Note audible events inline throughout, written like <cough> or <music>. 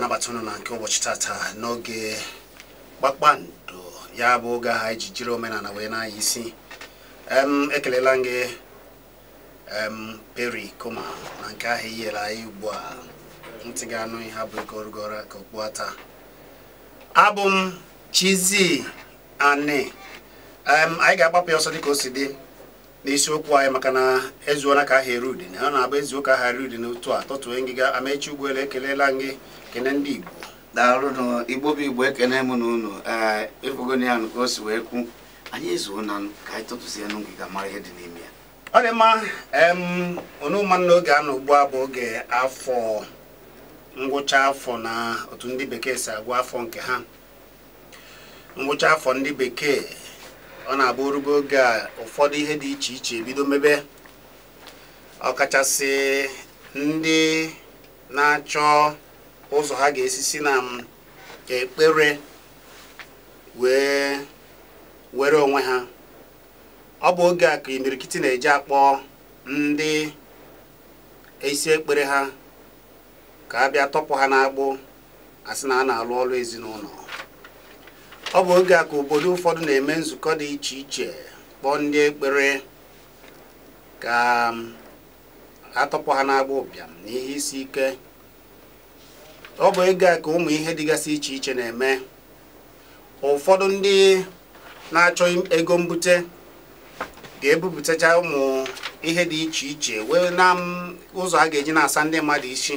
ga-anabata ụnụ na nke ụbọchị tata n'oge kpakpando ya bụ oge ahụ iji jiri omenala wee na-anya isi ekelela gị peri koma na nke ahụ i nyere anyị ugbu a ntị ga-anụ ihe abụ gorogoro ka okpu ata abụ m Chizzy Ani anyị ga-agbapụ ya ọsọ dịka o si dị n'isiokwu anyị maka na ezuona ka ahịa erudi udene ọ na-abụ ezuo ka erudi eru udene otu a tọtue ngịga amechi ụgbọelu ekelela gị kene ndị Igbo daalụ Igbo bụ Igbo ekene m na unu efogon eh, ya ka o si wee kwu anyị ezuo na ka anyị tụtụzie n'ngiga mara ihe dị n'ime ya ọ dị mma onuma n'oge a na ugbu a bụ oge afọ ngwụcha afọ na otu ndị bekee si agwa afọ nke ha ngwụcha afọ ndị bekee ọ na-abụ orugbo oge a ụfọdụ ihe dị iche iche ebido mebe ọkachasị ndị na-achọ ụzọ ha ga-esi si na um, ekpere wee were onwe ha ọ bụ oge a ka imirikiti na-eji akpọ ndị isi ekpere ha ka a bịa tọpụ ha n'agbụ asị na a na-alụ ọrụ ezinụlọ ọ bụ oge a ka obodo ụfọdụ na-eme nzukọ dị iche iche kpọọ ndị ekpere ka um, atọpụ ha n'agbụ ụbịam na ihe isi ike ọ bụ ego a ka ụmụ ihe dịgasị iche iche na-eme ụfọdụ ndị na-achọ ego mbute ga-ebupụtacha ụmụ ihe dị iche iche wee na ụzọ a ga-eji na-asa ndị mmadụ isi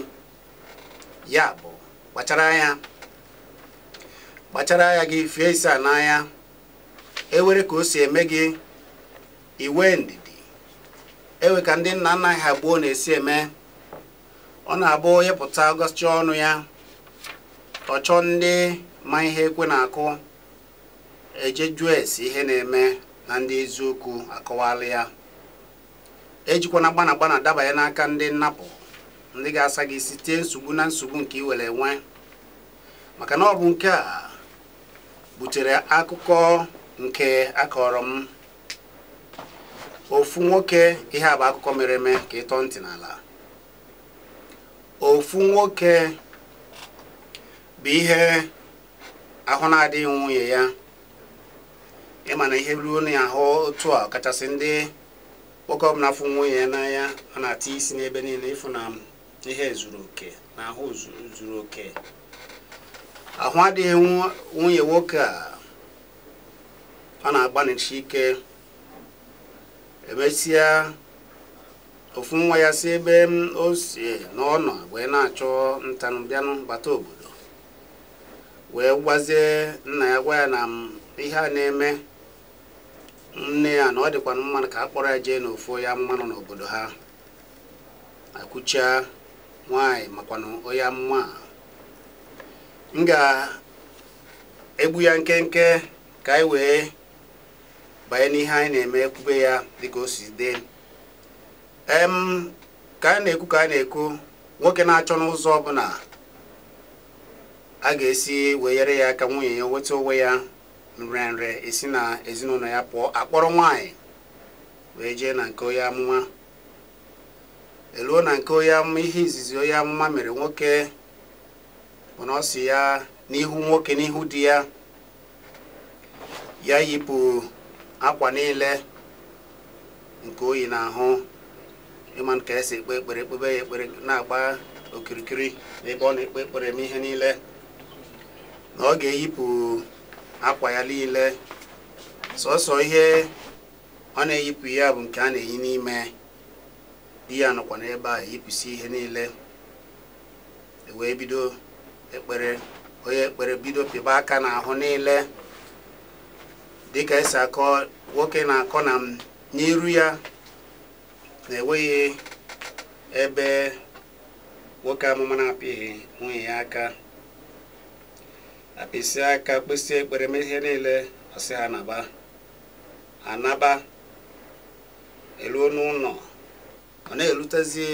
ya bụ kpachara anya kpachara anya gị fie isi a n'anya ewere ka o si eme gị iwe ndidi ewe ka ndị nna nna ha gbuo na-esi eme ọ na-abụ ịpụta ọnụ ya ọchọ ndị ma ihe ekwe na-akụ ejejuo esi ihe na-eme na ndị eziokwu akọwala ya ejikwana gbana gbana dabanye n'aka ndị nnapụ ndị ga-asa gị site nsogbu na nsogbu nke ị were enwe maka na ọ bụ nke a butere akụkọ nke akọrọ m ofu nwoke ihe a bụ akụkọ mere eme ka ịtọ ntị n'ala ofu nwoke bụ ihe ahụ na-adịghị nwunye ya ịma na ihe ruo na ahụ otu a kachasị ndị nwoke na afụ nwunye ya n'anya ọ na-ata isi n'ebe niile ịfụ na ihe zuru oke na ahụ zuru oke ahụ adịghị nwunye nwoke a ọ na-agbanịchi ike emesịa ofu nwa ya si ebe o si na ọ nọ wee na-achọ ntanụ bịanụ bata obodo wee gwazie nna ya gwa ya na ihe a na-eme nne ya na ọ dịkwana mmanụ ka a kpọrọ ya jee n'ofu onye mmanụ nọ n'obodo ha akwụcha nwaanyị makwa onye mma m ga-egbu ya nkenke ka anyị wee banye n'ihe anyị na-eme ekwube ya dịka o si dị ka anyị na-ekwu ka anyị na-ekwu nwoke na-achọ n'ụzọ ọbụla a ga-esi wenyere ya aka nwunye ya nweta onwe ya nrenre esi na ezinụlọ ya pụọ akpọrọ nwaanyị wee jee na nke onye amụma eluo na nke onye amụma ihe izizi onye amụma mere nwoke bụ na ọ si ya n'ihu nwoke n'ihu di ya ya yipụ akwa niile nke oyi na ahụ ịma nke esi ekpe ekpere ekpebe ya ekpere na-agba okirikiri n'ebe ọ na-ekpe ekpere m ihe niile na ọ ga-eyipụ akwa ya niile sọsọ ihe ọ na-eyipụ ya bụ nke a na-eyi n'ime di ya nọkwa n'ebe a eyipụsi ihe niile e wee bido ekpere onye ekpere bido pịba aka n'ahụ niile dịka esi akọ nwoke na-akọ na n'iru ya na-enweghị ebe nwoke amụma na-apịghị nwunye ya aka isi aka kpịsị ekpere mee ihe niile ọsị ha naba anaba eluo n'ụlọ ọ na-erutezi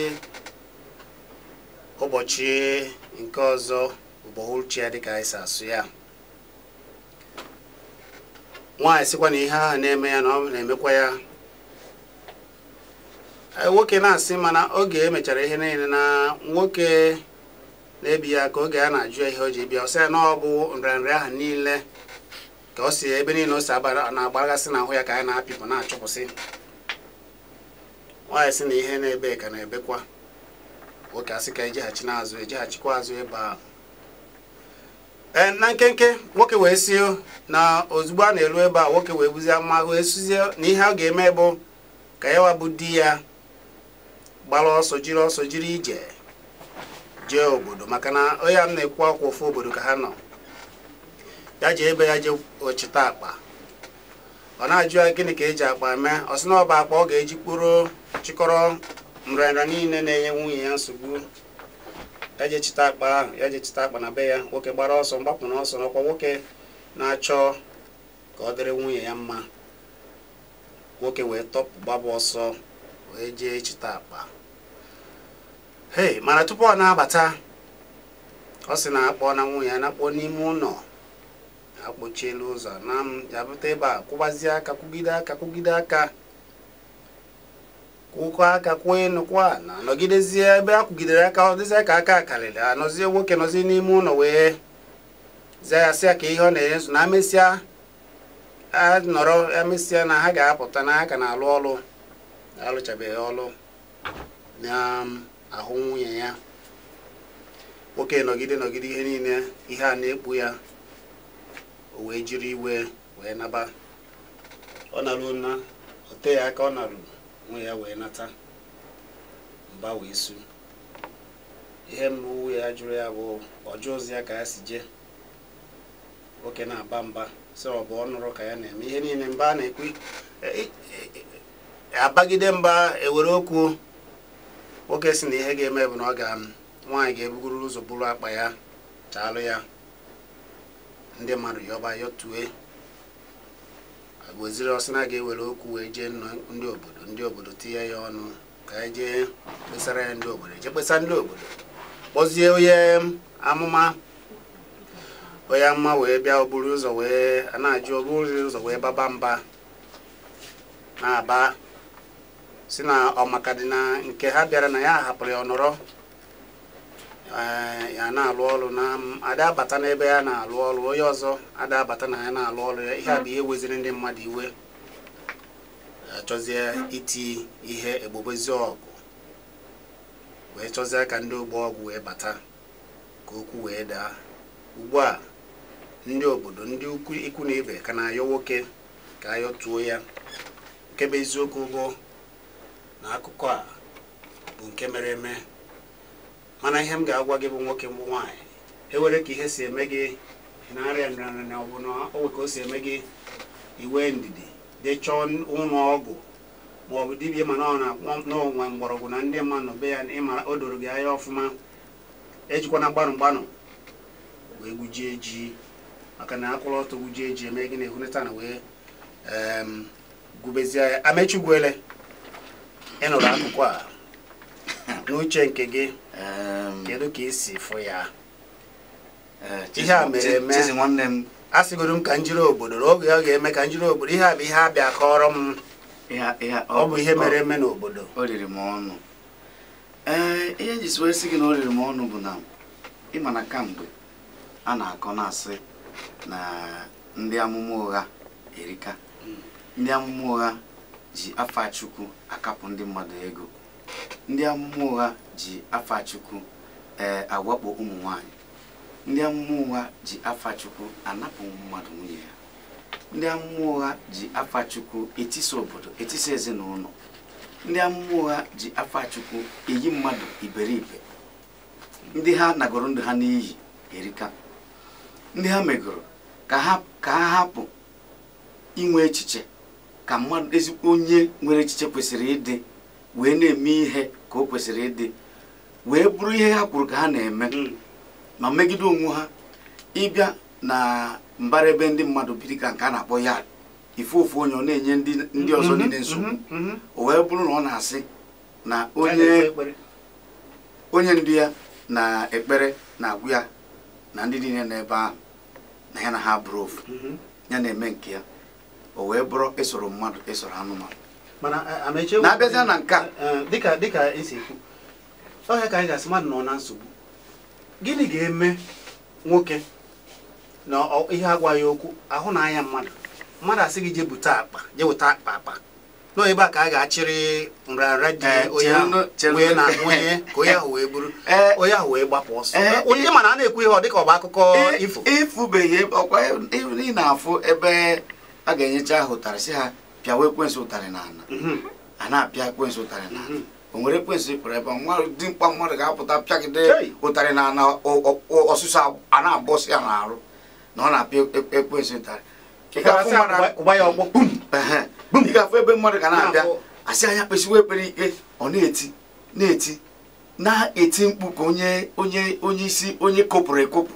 ụbọchị nke ọzọ ụbọchị ya dịka anyị si asụ ya nwaanyị sịkwa na ihe ahụ na-eme ya na na-emekwa ya nwoke na-asị mana oge emechara ihe niile na nwoke na-ebi ya ka oge ya na-ajụ ihe o ji bịa ọsị ya na ọ bụ nrịanrịa ahụ niile ka ọ si ebe niile o si na na n'ahụ ya ka anyị na-apịpụ na-achụpụsị nwaanyị sị na ihe na-ebe ka na-ebekwa nwoke asị ka ejeghachi n'azụ ejeghachikwa azụ ịba ee na nkenke nwoke wee si na ozugbo a na-eru ebe a nwoke wee buzie mma wee suzie na ihe ọ ga-eme bụ ka ya wabụ di ya gbara ọsọ jiri ọsọ jiri ije jee obodo maka na onye m na-ekwu ọkwa ofu obodo ka ha nọ ya jee ebe ya jee ochita akpa ọ na-ajụ ya gịnị ka eji akpa mee ọ sị na ọba akpa ọ ga-eji kpụrụ chịkọrọ nrịanrịa niile na-enye nwunye ya nsogbu ya jee chịta akpa ahụ ya je chịta akpa na be ya nwoke gbara ọsọ mgbapụ na ọsọ n'ọkwa nwoke na-achọ ka ọ dịrị nwunye ya mma nwoke wee tọpụ gbaba ọsọ wee jee chịta akpa hey mana tupu ọ na-abata ọ sị na-akpọ na nwunye ya na-akpọ n'ime ụlọ akpọchiela ụzọ na m ya bụta ebe a kwụgbazie aka kwụgide aka kwụgide aka kwụkọ aka kwụọ enu na nọgidezie ebe a kwụgidere aka ọ dịzie ka aka karịrị anọzie nwoke nọzie n'ime ụlọ wee zia ya sịa ka ihe ọ na-enye nso na a anọrọ emesịa na ha ga-apụta na aka ka na-alụ ọrụ alụchabeghị ọrụ na um, ahụ nwunye ya nwoke nọgide nọgide ihe niile ihe a na-ekpu ya o wee jiri iwe wee naba ọ narụ na ote ya aka ọ narụrụ nwe ya wee nata mba wee su ihe mbụ ya jụrụ ya bụ ọjụ ozi ya ka ya si jee nwoke na-aba mba sị ọ bụ ọ nụrụ ka ya na-eme ihe niile mba a na-ekwu e, e, e, abagide mba ewere okwu nwoke si na ihe ga-eme bụ na ọ ga um, nwaanyị ga-ebugoro ụzọ bụrụ akpa ya chaalụ ya ndị mmadụ yọba yọtue agwoziri ọsị na ga-ewere okwu wee jee ndị obodo ndị obodo tinye ya ọnụ ka anyị e jee kpesara ya ndị obodo e je kpesa ndị obodo kpọzie onye um, amụma onye amụma wee bịa oburu ụzọ wee na-ajụ oburu ụzọ wee baba mba na-aba si na ọmaka dị na nke ha bịara na ya hapụrụ ya ọnọrọ eh, ya na-alụ ọrụ na ada abata n'ebe ya na-alụ ọrụ onye ọzọ ada abata na ya na-alụ ọrụ ya ihe a bụ ihe weziri ndị mmadụ iwe achọzie eh, iti ihe egbobezi ọgụ wee chọzie ka ndị ogbo ọgụ wee bata ka okwu wee daa ugbu a ndị obodo ndị ikwu na ibe ka na-ayọ nwoke ka tuo ya nke bụ eziokwu bụ na akụkọ a bụ nke mere eme mana ihe m ga-agwa gị bụ nwoke mbụ nwaanyị ewere ka ihe si eme gị na-arịa nrịanrịa ọ bụ na owe ka o si eme gị iwe ndidi dechọọ ụlọ ọgwụ ma ọ bụ dibia mana ọ na mgbọrọgwụ na ndị mmadụ be ya ịmara o doro gị anya ọfụma ejikwana gbanụ gbanụ wee gwujie ji maka na akwụrụ ọtọ gwujie ji eme gị na ehuneta na wee ehm, gubezie ya amechigwele ị nụrụ akụkọ a <coughs> n'uche nke gị kedu ka si fụ ya e, ihe a mere eme a sịgoro m ka m jiri obodo oge ọ ga-eme ka m jiri obodo ihe a bụ ihe abịa kọrọ m ọ bụ ihe mere eme n'obodo ọnụ e, ihe njisi wee sị gị na o riri m ọnụ bụ na ịma na kamgbe a na-akọ na-asị na ndị amụma ụgha erika hmm. ndị amụma ụgha ji afa Chukwu akapụ ndị mmadụ ego ndị amụma ụgha ji afa Chukwu ee eh, awakpo ụmụ nwanyị ndị amụma ụgha ji afa Chukwu anapụ mmadụ nwunye ya ndị amụma ụgha ji afa Chukwu etisa obodo etisa ezinụlọ ndị amụma ụgha ji afa eyi mmadụ iberibe ndị ha nagoro ndụ ha n'iyi erika ndị ha megoro ka ha hapụ inwe echiche ka mmadụ ezigbo onye nwere echiche kwesịrị ịdị wee na-eme ihe ka o kwesịrị ịdị wee bụrụ ihe ha kwuru ka ha na-eme hmm. ma megide onwe ha ịbịa na mbara ebe ndị mmadụ biri ka nke a na-akpọ ya ife ofu onye ọ na-enye ndị ọzọ hmm, hmm, niile nsogbu o wee bụrụ na ọ na-asị na onye ndu ya na ekpere na-agwụ ya na ndị niile n'ebe ahụ na ya na ha bụrụ ofu ya na-eme nke ya o wee bụrụ ịsụrụ mmadụ ịsụrụ anụmanụ na-abịazịa na nke dịka dịka esi ekwu ọhịa ka anyị ga-asị mmadụ nọ na nsogbu gịnị ga-eme nwoke na ihe agwaghị okwu ahụ na anya mmadụ mmadụ asị gị jebute akpa jeweta akpa akpa nọ ebe a ka a ga-achịrị nrịanrịa dị eh, onye ahụ wee bụrụ eh, onye ahụ wee gbapụ ọsọ eh, onye mana a na-ekwu ihe ọ dịka ọ bụ akụkọ ifo ifubeghị ọkwa ị na-afụ ebe a ga-enyecha ha ụtarị si ha pịawa ekwensụ ụtarị n'ala ana mhm. a na-apịa ekwensụ ụtarị n'ala mhm. o nwere ekwensụ ịpụrụ ebe dị mkpa mmadụ ga-apụta pịagide ụtarị n'ala ana ọsụsụ a na-abọsị ya n'arụ na ọ na-apịa e, e, ekwensụ ụtarị ị ga-afụ ebe mmadụ ga na-abịa asị anya kpesiwa ekpere ike ọ na-eti na-eti na-eti mkpu ka onye onye onye isi onye kopụrụ ekopụ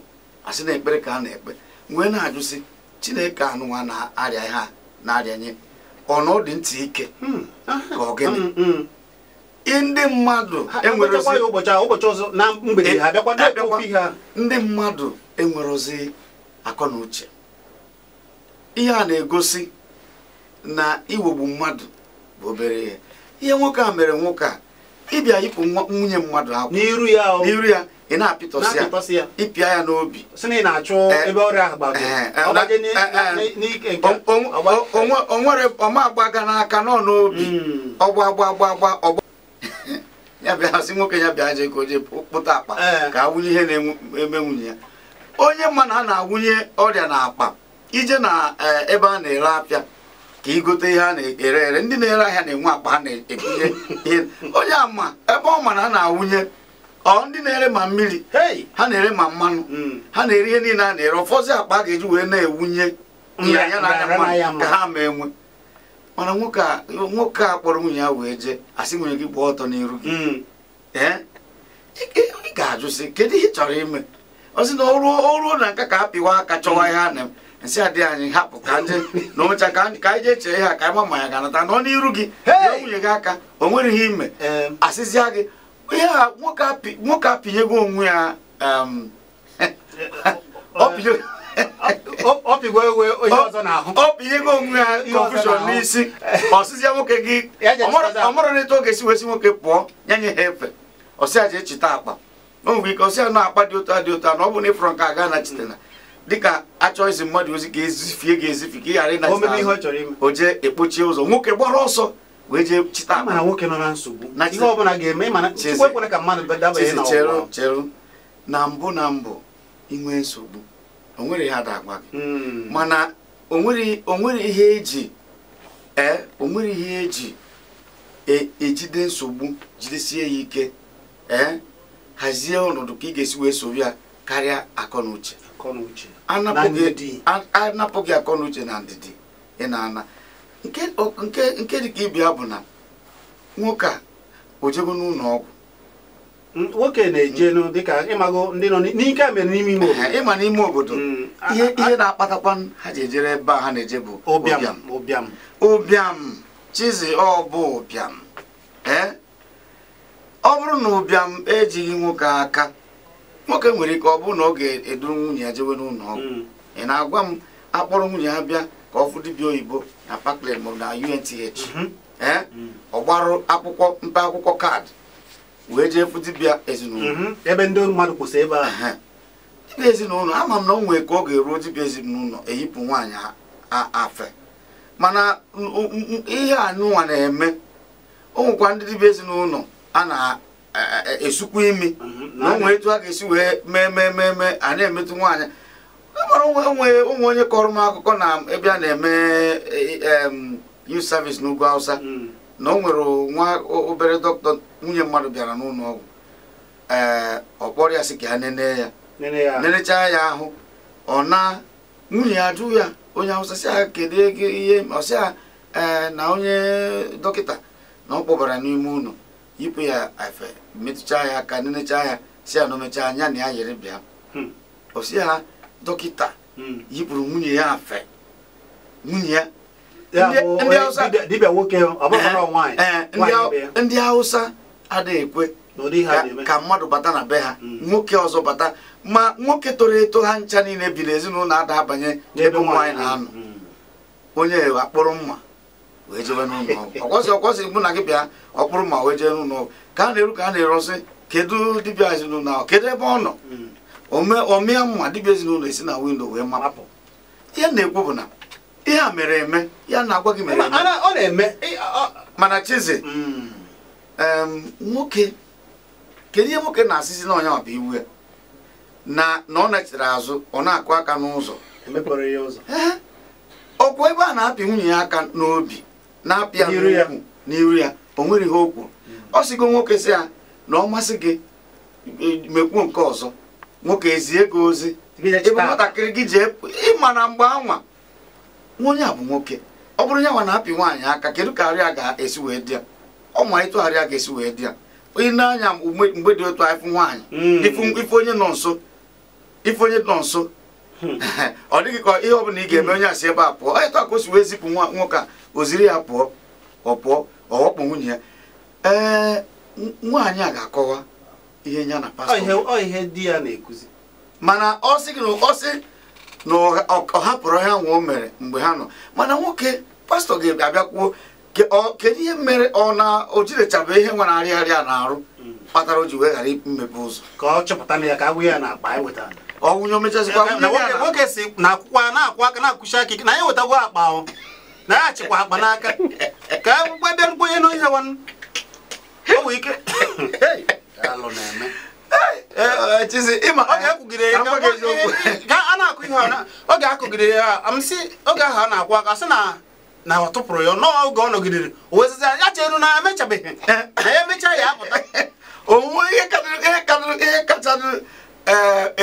asị na ekpere ka a na-ekpe wee na-ajụsị chineke anụwa na-arịa ha na-arịanye ọnọdụ ntị ike hmm. ka ah. ọ gịnị hmm, hmm. ndị mmadụ ndị mmadụ enwerozi akọ na uche ihe a na-egosi na iwegbu mmadụ bụ obere ihe ihe nwoke a mere nwoke a ịbịa yipụ nwunye mmadụ akwụ n'iru ya ị na-apịtọsị ya ịpịa ya n'obi onwere ọma agbaga n'aka nọ n'obi hmm. ọgba gba ọgba <laughs> ya nwoke ya bịa je koje kpụta akpa eh. ka a ihe na-eme nwunye ya onye mma na a na-awụnye ọrịa na akpa ije na eh, ebe a na-ere apịa ka igote ihe a na-ere ere ndị na-ere ahịa na-enwe akpa ha na-ekunye <laughs> ihe onye ama ebe ọ ma na a na-awụnye ọ ndị na-ere ma mmiri ha na-ere ma mmanụ hmm. ha na-ere ihe niile a na-ere ụfọdụ akpa a ga-eji wee na-ewunye anya na anya mmanụ ka ha ma enwe mana nwoke a kpọrọ nwunye ya wee jee asị nwunye gị gbaa ọtọ n'iru gị hmm. ị ga-ajụ sị kedu ihe ị chọrọ ime ọ sị na o ruo na nka ka a pịwa aka chọwa ihe a na nsị anyị hapụ ka ndị na ụmecha ka anyị jee chee ha ka anyị ma ma ya ga-anata ọ n'iru gị nwunye gị aka o nwere ihe ime asịzịa gị ihe a nwoke apịnyego onwe ya um, <laughs> ọ pịnyego onwe ya confusion n'isi ọsịsị ya nwoke gị ọmụrụ n'etu oge si wesi nwoke pụọ nye nye ha efe ọsịa ji echeta akpa o nwere ike ọsịa na akpa dị otu dị otu na ọ bụ na ịfụrụ nke aga nachitena dịka achọ izi mmadụ ozi ka ezifie ga-ezifi ka ị ghara ịnachita o jee ekpochie ụzọ nwoke gbara ọsọ wee jee chịta mana nwoke nọ na nsogbu ihe ọbụla ga-eme mana chukwu ekwere ka mmadụ dabanye na ọgwa cheru na mbụ na mbụ inwe nsogbu nwere ihe ada agwa gị hmm. mana nwere ihe eji ee nwere ihe eji ejide e nsogbu jidesie ya ike ee hazie ọnọdụ ka ị ga-esi wee soro ya karịa akọ na uche anapụghị akọ na uche na ndidi ị na-ana nke dị ka ibia bụ na nwoke a o ojego n'ụlọ ọgwụ nwoke na-eje mm. dịka ịmago ndị nọ n'ike mere n'ime ime obodo ịma n'ime obodo mm. ihe na-akpatakwa ha ji ejere ebe a ha na-eje bụ ụbịam ụbịam ụbịam chizi ọ bụ ụbịam ee ọ bụrụ na ụbịam ejighị nwoke aka nwoke nwere ike ọ bụrụ na ọ ga-eduru nwunye ya jewe n'ụlọ ọgwụ mm. ị na-agwa m akpọrọ nwunye ya bịa ka ọ fụ dibịa oyibo na Parkland maọbụ na UNTH mhm. mhm. ọ gbarụ akwụkwọ mpe akwụkwọ kaadị wee jee fụ dibịa ezinụlọ mhm. ebe ndị mmadụ kwụsị ebe ahụ dibịa ezinụlọ ama m na o nwee ka ọ ga-eruo dibịa ezinụlọ eyipụ nwaanyị afe mana ihe anụnwa na-eme o ndị dibịa ezinụlọ a na-esukwa e, e, e, imi na o etu a ga-esi wee mee mee mee mee a na-emetụ nwaanyị amara e onwe onwe ụmụ onye kọrọ m akụkọ na ebe a na-eme e, e, youth service n'ugwu Hausa mm. na o nwere nwa obere dọkịta nwunye mmadụ bịara n'ụlọ ọgwụ ee ọ kpọrọ ya sị ka ya nene ya nenechaa ya ahụ ọ na nwunye ya ya onye Hausa sị kedu kedu ihe ọsị ya ee na onye dọkịta na ọ kpọbara n'ime ụlọ yipụ ya efe metụchaa ya aka nenechaa ya si ya na omechaa anya na ya yere bịa ha hmm. dọkịta yipụrụ nwunye ya afe nwunye ya ndị hausa adịghị ekwe ka mmadụ bata na be ha hmm. nwoke ọzọ bata ma nwoke toro eto ha ncha niile bi n'ezinụlọ ada abanye ebe nwaanyị na-anọ hmm. onye akpụrụ mma wee jebe n'ụlọ ọgwụ <laughs> ọkwọsị ọkwọsị mụ na gị bịa ọkpụrụ mma wee jee n'ụlọ ọgwụ ka a na-eru ka a na-erosị kedu dibịa ezinụlọ ahụ kedu ebe ọ nọ hmm. ọmịa mma dịbịa ezinụlọ esi na windo wee mapụ ya na-ekwu bụ na ihe a mere eme ya na-agwa gị mere eme mana chize hmm. nwoke kedu ihe nwoke na-asịsị na onya ọba iwu ya na ọ na-echere azụ ọ na-akụ aka n'ụzọ okwu ebe a na-apị nwunye ya aka n'obi na-apị ya n'iru ya o nwere ihe o kwuru hmm. ọ sigo nwoke si ya na ọ masị gị e, mekwuo nke ọzọ nwoke ezie gị ozi ebe nwatakịrị gị ji ịma na mgbe anwa onye a bụ nwoke ọ bụrụ nwa na-apị nwaanyị aka kedu ka arịa ga-esi wee dị ya ọ ma ịtụ arịa ga-esi wee dị ya onye anya mgbe dị otu anyịfụ nwaanyị hmm. ife onye nọ nso ife onye nọ nso hmm. <laughs> ọ dịghị ka ihe ọbụla ị ga-eme hmm. onye asị ebe a pụọ ịtụ ka o si wee zipụ nwoke a oziri ya pụọ ọ pụọ ọ ghọkpụ nwunye ya ee nwaanyị a ga-akọwa ihe nya na pastọ ihe di ya na-ekuzi mana ọ sị ọ sị na ọ hapụrụ ha nwa o mere mgbe ha nọ mana nwoke pastọ ga-abịa kwuo kedu ihe mere ọ na o jirechabe ihe nwa na-arị nwere arịarịa na-arụ mm. kpatara o ji wee ghara imepe ụzọ ka ọ chọpụta na ya ka agwụ ya e na akpa anyị wetara ọnwụnye omechazikwa nwoke si na akwụkwọ na-akwụ aka na akwụsi aka na ya wetagwo akpa ọ na ya achịkwa akpa n'aka <laughs> ka akwụkwọ e bịa nkwenye n'onye nwanne ike alụ na-eme ọ eh, eh, ga-akụgide eh, ya amsị oge ahụ a na-akwụ aka sị na na ọ tụpụrụ ya oge ọ nọgidere o ya cheru na emechabeghị na ya emechaa ya apụta onwe ihe kacha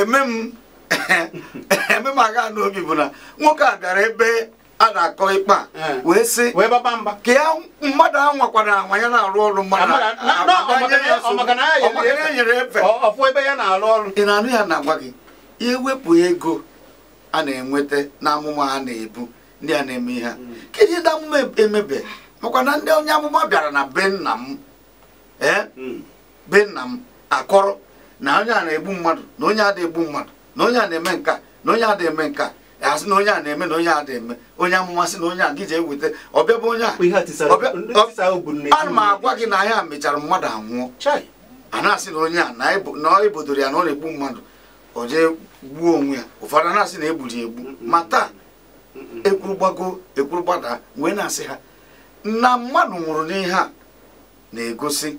eme m <laughs> agha n'obi bụ na nwoke a bịara ebe a na-akọ ikpe a eh. wee sị ka ya mmadụ ahụ nwakwara anwa ya na-arụ ọrụ mmadụ ọmakarịa ị na-anụ ya na-agwa gị wepụ ego a na-enweta na amụma a na-ebu ndị a na-eme ihe hmm. kedu ndị amụma e- emebe makwa na ndị onye amụma bịara na be m ee eh? hmm. be nna m akọrọ na onye a na-egbu mmadụ na onye a na-egbu mmadụ na onye a na-eme nka na onye a na-eme nka asị na onye a na-eme na onye a na-eme onye amụma sị na onye a gị ji eweta ọbịa bụ onye a ana m agwa gị na ahịa mechara mmadụ anwụọ a na-asị na onye a na ọ ebodoro ya na ọ na-egbu mmadụ ọ jee gbuo onwe ya ụfọdụ a na-asị na egbu ma taa ekwuru gbago ekwuru gbada wee na-asị ha na mmadụ nwụrụ n'ihe a na-egosi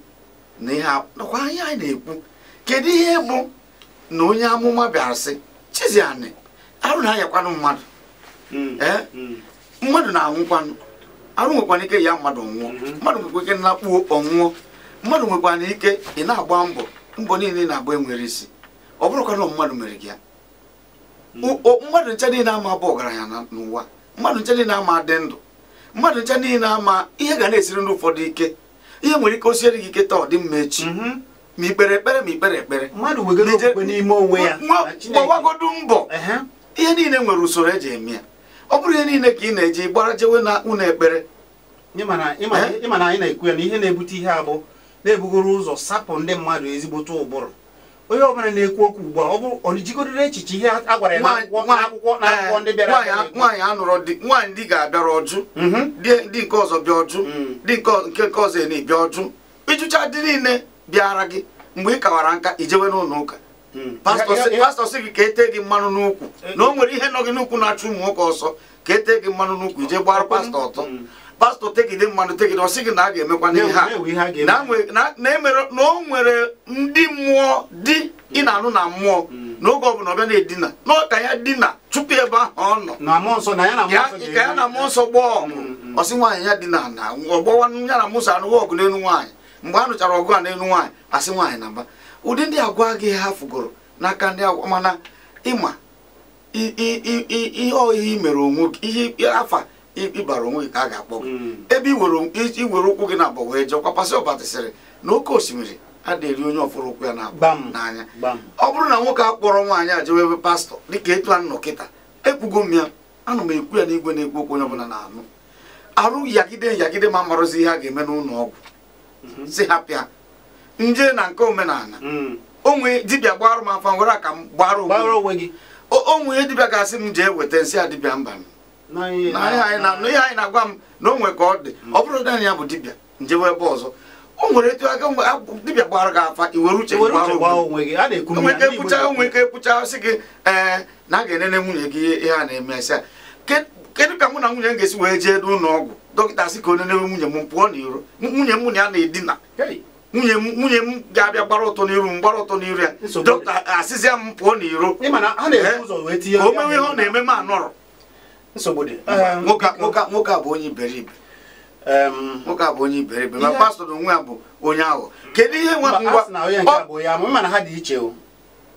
na ihe nakwa anya anyị na-ekwu kedu ihe bụ na onye amụma bịara sị chizianị arụ na-anyakwanụ mmadụ hmm. Eh? Hmm. mmadụ na-anwụkwanụ arụ nwekwana ike ya mmadụ nwụọ hmm. mmadụ nwekwa ike nakpuo ọnwụọ mmadụ nwekwana ike ị na-agba mbọ mbọ niile na-agba enwere isi ọ bụrụkwa na mmadụ mere gị ya mmadụ nche niile ama bụ ọgaranya n'ụwa mmadụ nche niile ama adị ndụ mmadụ nche niile ama ihe ga na-esiri ndị ụfọdụ ike ihe nwere ike o gị ike taa ọ dị mma echi ma ikpere ekpere ma ikpere ekpere mmadụ gbọwagodu mbọ ihe niile nwere usoro eji eme ya ọ bụrụ ihe niile ka ị na-eji gbara jewe na ụlọ ekpere ịma eh? na anyị na-ekwu ya na ihe na-ebute ihe abụ na-ebugoro ụzọ sapụ ndị mmadụ ezigbote ụbụrụ onye ọbụla na-ekwu okwu ugbu a ọ bụrụ ọ jigodoro echiche ihe a gwara ya n'akwụkwọ n'akwụkwọ ndị bịara nwaanyị anụrụ di nwaanyị ndị ga-abịara ọjụ ndị mhm. nke ọzọ bịa ọjụ mm. ndị nke nke ọzọ na-ebịa ọjụ ịjụcha dị niile bịara gị mgbe ị kawara nka ijewe n'ụlọ ụka pastọ sị gị ka etee gị mmanụ n'ukwu eh, eh. na o nwere ihe nọ gị n'ukwu na-achụ ụmụ nwoke ọsọ ka ete gị mmanụ n'ukwu ije gbara pastọ ọtọ hmm. pastọ tegide mmanụ tegide ọ gị na a ga-emekwa n'ihe a e na o nwere ndị mmụọ di ị na-anụ na mmụọ hmm. n'oge ọ ọbịa na-edina n'ọka ya dina tupu ebe ahụ ọ nọ ka ya na mmụọ nsọ gbaa ọgụ ọsị nwaanyị ya dina na ọgbọwa ya na mmụọ nsọ ọgụ n'elu nwaanyị mgbe a nụchara ọgụ a n'elu nwaanyị asị nwaanyị na mba ụdị ndị agwa gị ha fụgoro n'aka ndị agwa mana ịma ihe ihe mere onwe gị ihe afa ịbara onwe gị ka a ga-akpọ gị hmm. ebe iwere ụkwụ gị na-abọ wee jee kwapasị ọbatasịrị na oke osimiri adịrị onye ọfụrụ ụkwụ ya n'anya ọ bụrụ na nwoke a kpọrọ nwaanyị a ebe pastọ dịka etu a kịta ekwugo m ya anụ m ekwu ya n'igwe na-ekwu okwu onye ọbụla na-anụ arụ yagide yagide ma amarozi ihe a ga-eme n'ụlọ ọgwụ mhm. si ha pịa nje na nke omenala hmm. onwe dibịa gbarụ m afa nwere aka m gbarụ onwe gị onwe dibịa ga-asị m jee weta nsị a dibịa mba m na ihe anyị na-agwa m na o nwe ka ọ dị hmm. ọ bụrụ na ya bụ dibịa njewe ebe ọzọ o nwere etu aka mgbe dibịa gbara gị afa iwere uche onwe ka ekwucha sị gị ee na a ga-enene nwunye gị ihe a na-eme asị kedu ka mụ na nwunye m ga-esi wee jee n'ụlọ ọgwụ dọkịta sị ka o nenere nwunye m pụọ n'iro nwunye m na ya na-edina nwunye m nwunye m ga-abịa gbara ụtọ n'iru m gbara ụtọ n'iru ya dọkịta asịzịa m pụọ n'iro o mewe ihe ọ na-eme m anọrọ nwoke a bụ onye iberibe nwoke a bụ onye iberibe ma pastọ na onwe ya bụ onye ahụ kedu ihe nwa ha dị iche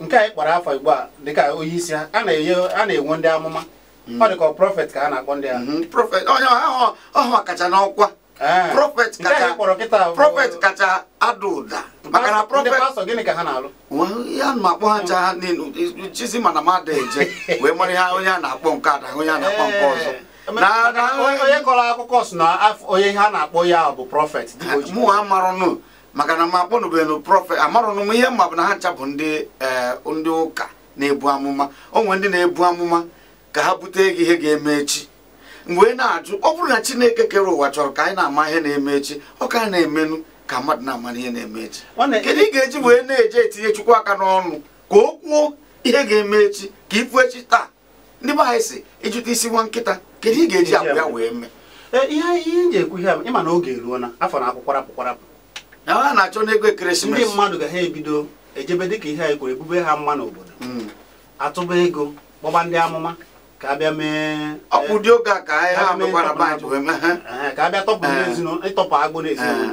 nke anyị kpara afọ igbo a dịka onye isi a na-enwe ndị amụma ọ hmm. dị ka prọfet ka a na-akpọ ndị ahụ ọha hmm, kacha n'ọkwa prọfet kacha ada ụda maka na ya hmm. ma akpọ <laughs> ha ncha ha chizi mana m ada eje wee mara ihe onye a na-akpọ nke ada onye a na-akpọ eh. nke ọzọ onye kọrọ akụkọ si na onye ha na-akpọ ya bụ prọfet mụ amarụnụ maka na m akpọnụbeghị prọfet amarụnụ m ihe mma bụ na ha ncha bụ ndị eh, ndị ụka na-ebu amụma o nwere ndị na-ebu amụma ka ha bute gị ihe ga-eme echi mgbe ị na-ajụ ọ bụrụ na chineke kere ụwa chọrọ ka anyị na-ama ihe na-eme echi ọ ka na-emenụ ka mmadụ na-amara ihe na-eme echi kedu ị ga-eji wee na-eje etinye chukwu aka n'ọnụ ka o kwuo ihe ga-eme echi ka ipu echi taa ndị be anyị si ịjụta isi nwa nkịta kedu ị ga-eji agwa ya wee mee e, ihe ihe ji ekwu ihe ịma na oge eruo na afọ na akwụkwarapụ kwarapụ na ha na-achọ n'ego ekeresimesi ndị mmadụ ga ha ebido ejebe dịka ihe anyị ebube ha mma n'obodo hmm. atụba ego gbọba ndị amụma ka bịa mee ọ dị oge a ka anyị ha mekwara be wee mee. ka bịa tọpụ n'ezinụlọ ịtọpụ agụ n'ezinụlọ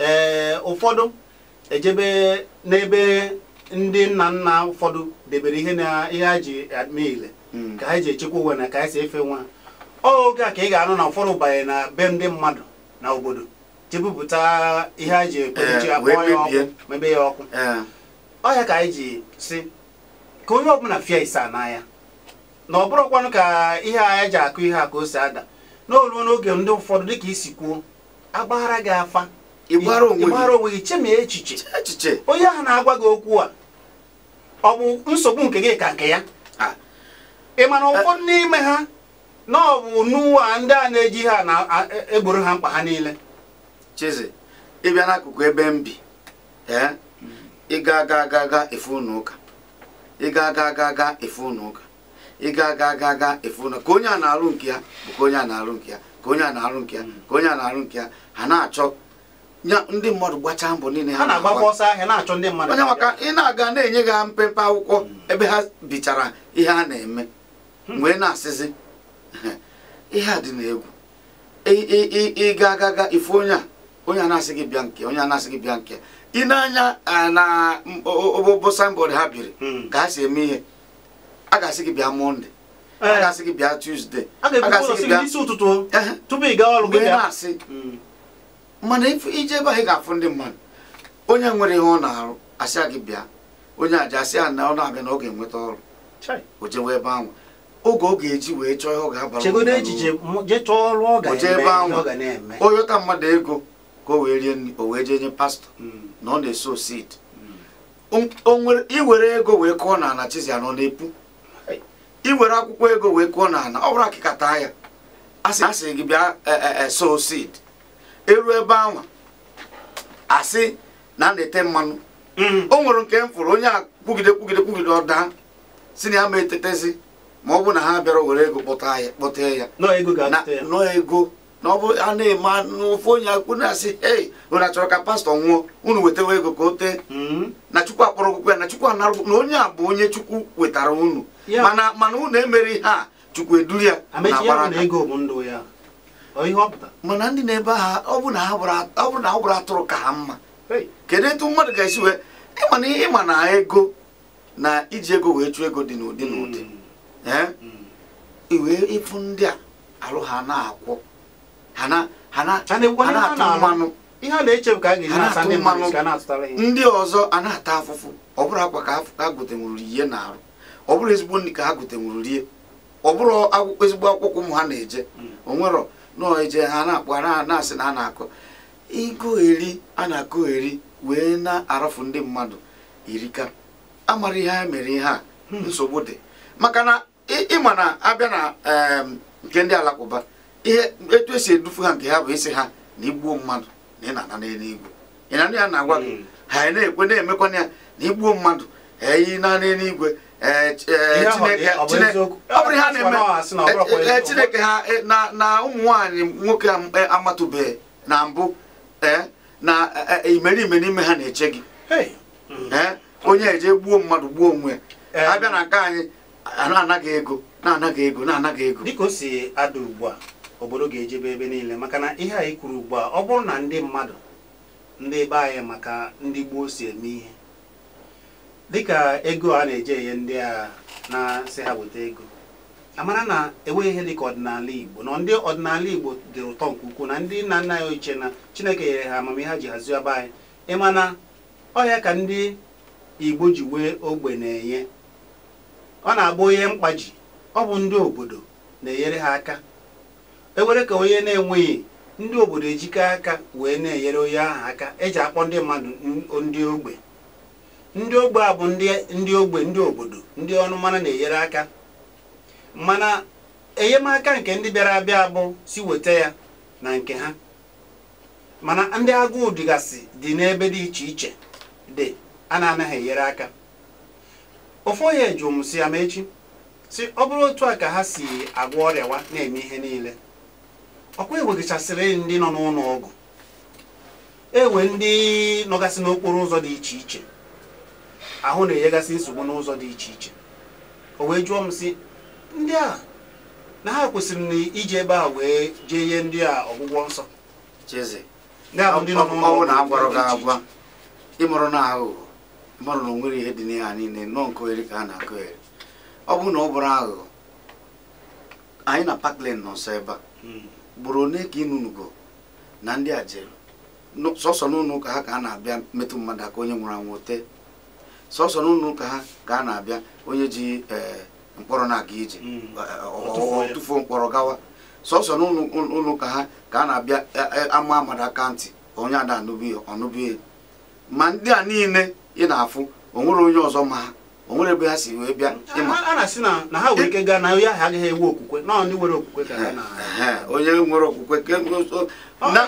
ee ụfọdụ ejebe n'ebe ndị nna nna ụfọdụ debere ihe na ihe a ji eme ile hmm. ka ha ji echekwa onwe na ka ha si efe nwa oge a ka ị ga-anụ na ụfọdụ banye na be ndị mmadụ na obodo jebupụta ihe ha ji ekpechi akpọ ya ọkụ mebe ya ọkụ ọhịa ka anyị ji si ka onye ọbụla fịa isa n'anya na ọ bụrụkwanụ ka ihe anyị ji akụ ihe a ka o si ada n'oluo n'oge ndị ụfọdụ dịka isi kwuo agbaghara gị afa ịgbara onwe gị chemie echiche onye ahụ na-agwa gị okwu a ọ bụ nsogbu nke gị ka nke ya ị mana ụfọdụ n'ime ha na ọ bụ n'ụwa ndị a na-eji ha na-egboro e ha mkpa ha niile chizi ịbịa n'akụkụ ebe m bi ịga aga aga aga efe ụnụ ụka ịga aga aga aga efe ụnụ ụka ịga ga ga ga efu na ka onye a na-alụ nke ya bụ ka onye a na-alụ nke ya ka onye a na-alụ nke ya mm. ka onye a na-alụ nke ya ha na-achọ ndị mmadụ gbachaa mbọ niile ha onye maka ị na-aga na-enye gị mpempe akwụkwọ mm. ebe ha bichara ihe a na-eme hmm. wee na-asịzi <laughs> ihe a dị n'egwu ịga ga ga ifu onye a onye a na-asị gị bịa nke onye a na-asị gị bịa nke ị na-anya na obobọ signboard ha biri hmm. ka ha si eme ihe a ga-asị gị bịa Mọnde, a eh. ga-asị gị bịa tusde a ga-asị gị bịa isi ụtụtụ eh. tupu ị gaa ọrụ gị na-asị hmm. mana ije ebe anyị ga-afụ ndị mmadụ onye nwere ihe ọ na-arụ asịa gị bịa onye aja asị ya na ọ na-abịa na ọ ga-enweta ọrụ o jewe ebe ahụ oge ọ ga-eji wee chọọ ihe ọ ga-abara oje ebe ahụ oyota mmadụ ego ka o wee rie nri o wee jee nye pastọ hmm. na ọ na-eso seed iwere hmm. ego wee kụọ na ala chizi anọ na-epu iwere akwụkwọ ego wee kụọ n'ala ọ bụrụ akịkata ya asị gị bịa e, e, e, sow seed eruo ebe ahụ asị na a na-ete mmanụ mm. o nwere nke m fụrụ onye a kwugide kwugide kwugide ọda si na ya ma etetezi ma ọ bụ na ha bịara were ego kpọta ya kpọta nọ ego na ọ bụ a na-eme n'ofu onye akwụkwọ na-asị ei onye achọrọ ka pastọ nwụọ unu wetawa ego ka o tee mm. na chukwu akpọrọ akwụkwọ ya na chukwu anara na onye a bụ onye chukwu wetara unu mana mana unu emere ihe a chukwu eduru ya mana ndị na-ebe ha ọ bụ na ọ gwara atụrụ ka ha mma kedu etu mmadụ ga-esi wee ịma na ịma na ego na iji ego wee chụọ ego dị n'ụdị hmm. n'ụdị iwee hmm. eh? ịfụ ndị a alụ ha na-akwụ ndị ọzọ a na-ata afụfụ ọ bụrụ akwa ka a gotenwuru ihe na-arụ ọ bụrụ ezigbo nri ka ha gotenwuru rie ọ bụrụ akwụkwọ ezigbo akwụkwọ ụmụ ha na-eje hmm. onwerọ nọọ eje ha na-akpọ na-asị na a na-akọ ịgụgheri a na-akụgheri wee na-arafu ndị mmadụ irika amara ihe ha mere ihe a hmm. nsogbu dị maka na ịma na abịa na nke ndị alakụba ihe etu esi edufu ha nke ha bụ isi ha na igbuo mmadụ na ị na-ana n'eluigwe ịnanụ na-agwa gị hmm. ha na-ekwe na-emekwana ya na igbuo mmadụ eyi na n'eluigwe chineke ha e, na ụmụ nwanyị nwoke e, amatụbeghị na mbụ e, na imerime n'ime ha na-eche gị onye eje gbuo mmadụ gbuo onwe abịa na nke anyị na-anaghị ego na-anaghị ego na-anaghị ego dịka o si ada ugbu a obodo ga-ejebe ebe niile maka na ihe anyị kwuru ugbu a ọ bụrụ na ndị mmadụ ndị gbaa anyị maka ndị gboo si eme ihe dịka ego a na-eje enye ndị a na-asị ha weta ego amara na enweghị ihe dịka ọdịnala Igbo na ndị ọdịnala Igbo dị ụtọ nke ukwuu na ndị nna nna ya ochie na Chineke nyere ha amamihe ha ji hazie ọba anyị ịmana ọhịa ka ndị Igbo ji wee ogbe na-enye ọ na-agba onye mkpaji ọ bụ ndị obodo na-enyere ha aka ewere ka onye na-enweghị ndị obodo ejikọ aka wee na-enyere onye aha aka eji akpọ ndị mmadụ ndị ogbe ndị ogbe a bụ ndị ogbe ndị obodo ndị ọnụ mmanụ na-enyere aka mana enyemaka nke ndị bịara abịa bụ si weta ya na nke ha mana ndị agụụ dịgasị dị n'ebe dị iche iche dị a na-anaghị enyere aka ofu onye ji ya si amechi si ọ bụrụ otu a ka ha si agwọ ọrịawa na-eme ihe niile ọkwa eweghachasịrị ndị nọ n'ụlọ ọgwụ ewe ndị nọgasị n'okporo ụzọ dị iche iche ahụ na-enyegasị nsogbu n'ụzọ dị iche iche o wee jụọ m sị ndị a na ha kwesịrị na iji ebe a wee jee ihe ndị a ọgwụgwọ nsọ ọnwụ na agwara gị agwa ịmụrụ na aghụghọ ịmụrụ na onwere ihe dị n'ihe niile nọ nke ohere ka a na-akụgheri ọ bụrụ na ọ bụrụ aghụghọ anyị na pakland nọ nsọ ebe a hmm. gburu one ka inunugo na ndị a jere sọsọ n'ụlọ ụka ha ka a na-abịa metụ mmadụ aka onye nwụrụ anwụ tee sọsọ na ha ka a na-abịa onye ji eh, mkpọrọ na-aga ije mm. eh, eh, tụfuo mkpọrọ gawa sọsọ na ha ka a na-abịa ama amada aka ntị onye ada ọnụbie ma ndị a niile ị na-afụ onwere onye ọzọ ma ha onwere ebe ha si wee bịa a na-asị na ha nwere ike gaa na onye ahụ agaghị enwe okwukwe na ndị nwere okwukwe ka onye nwere okwukwe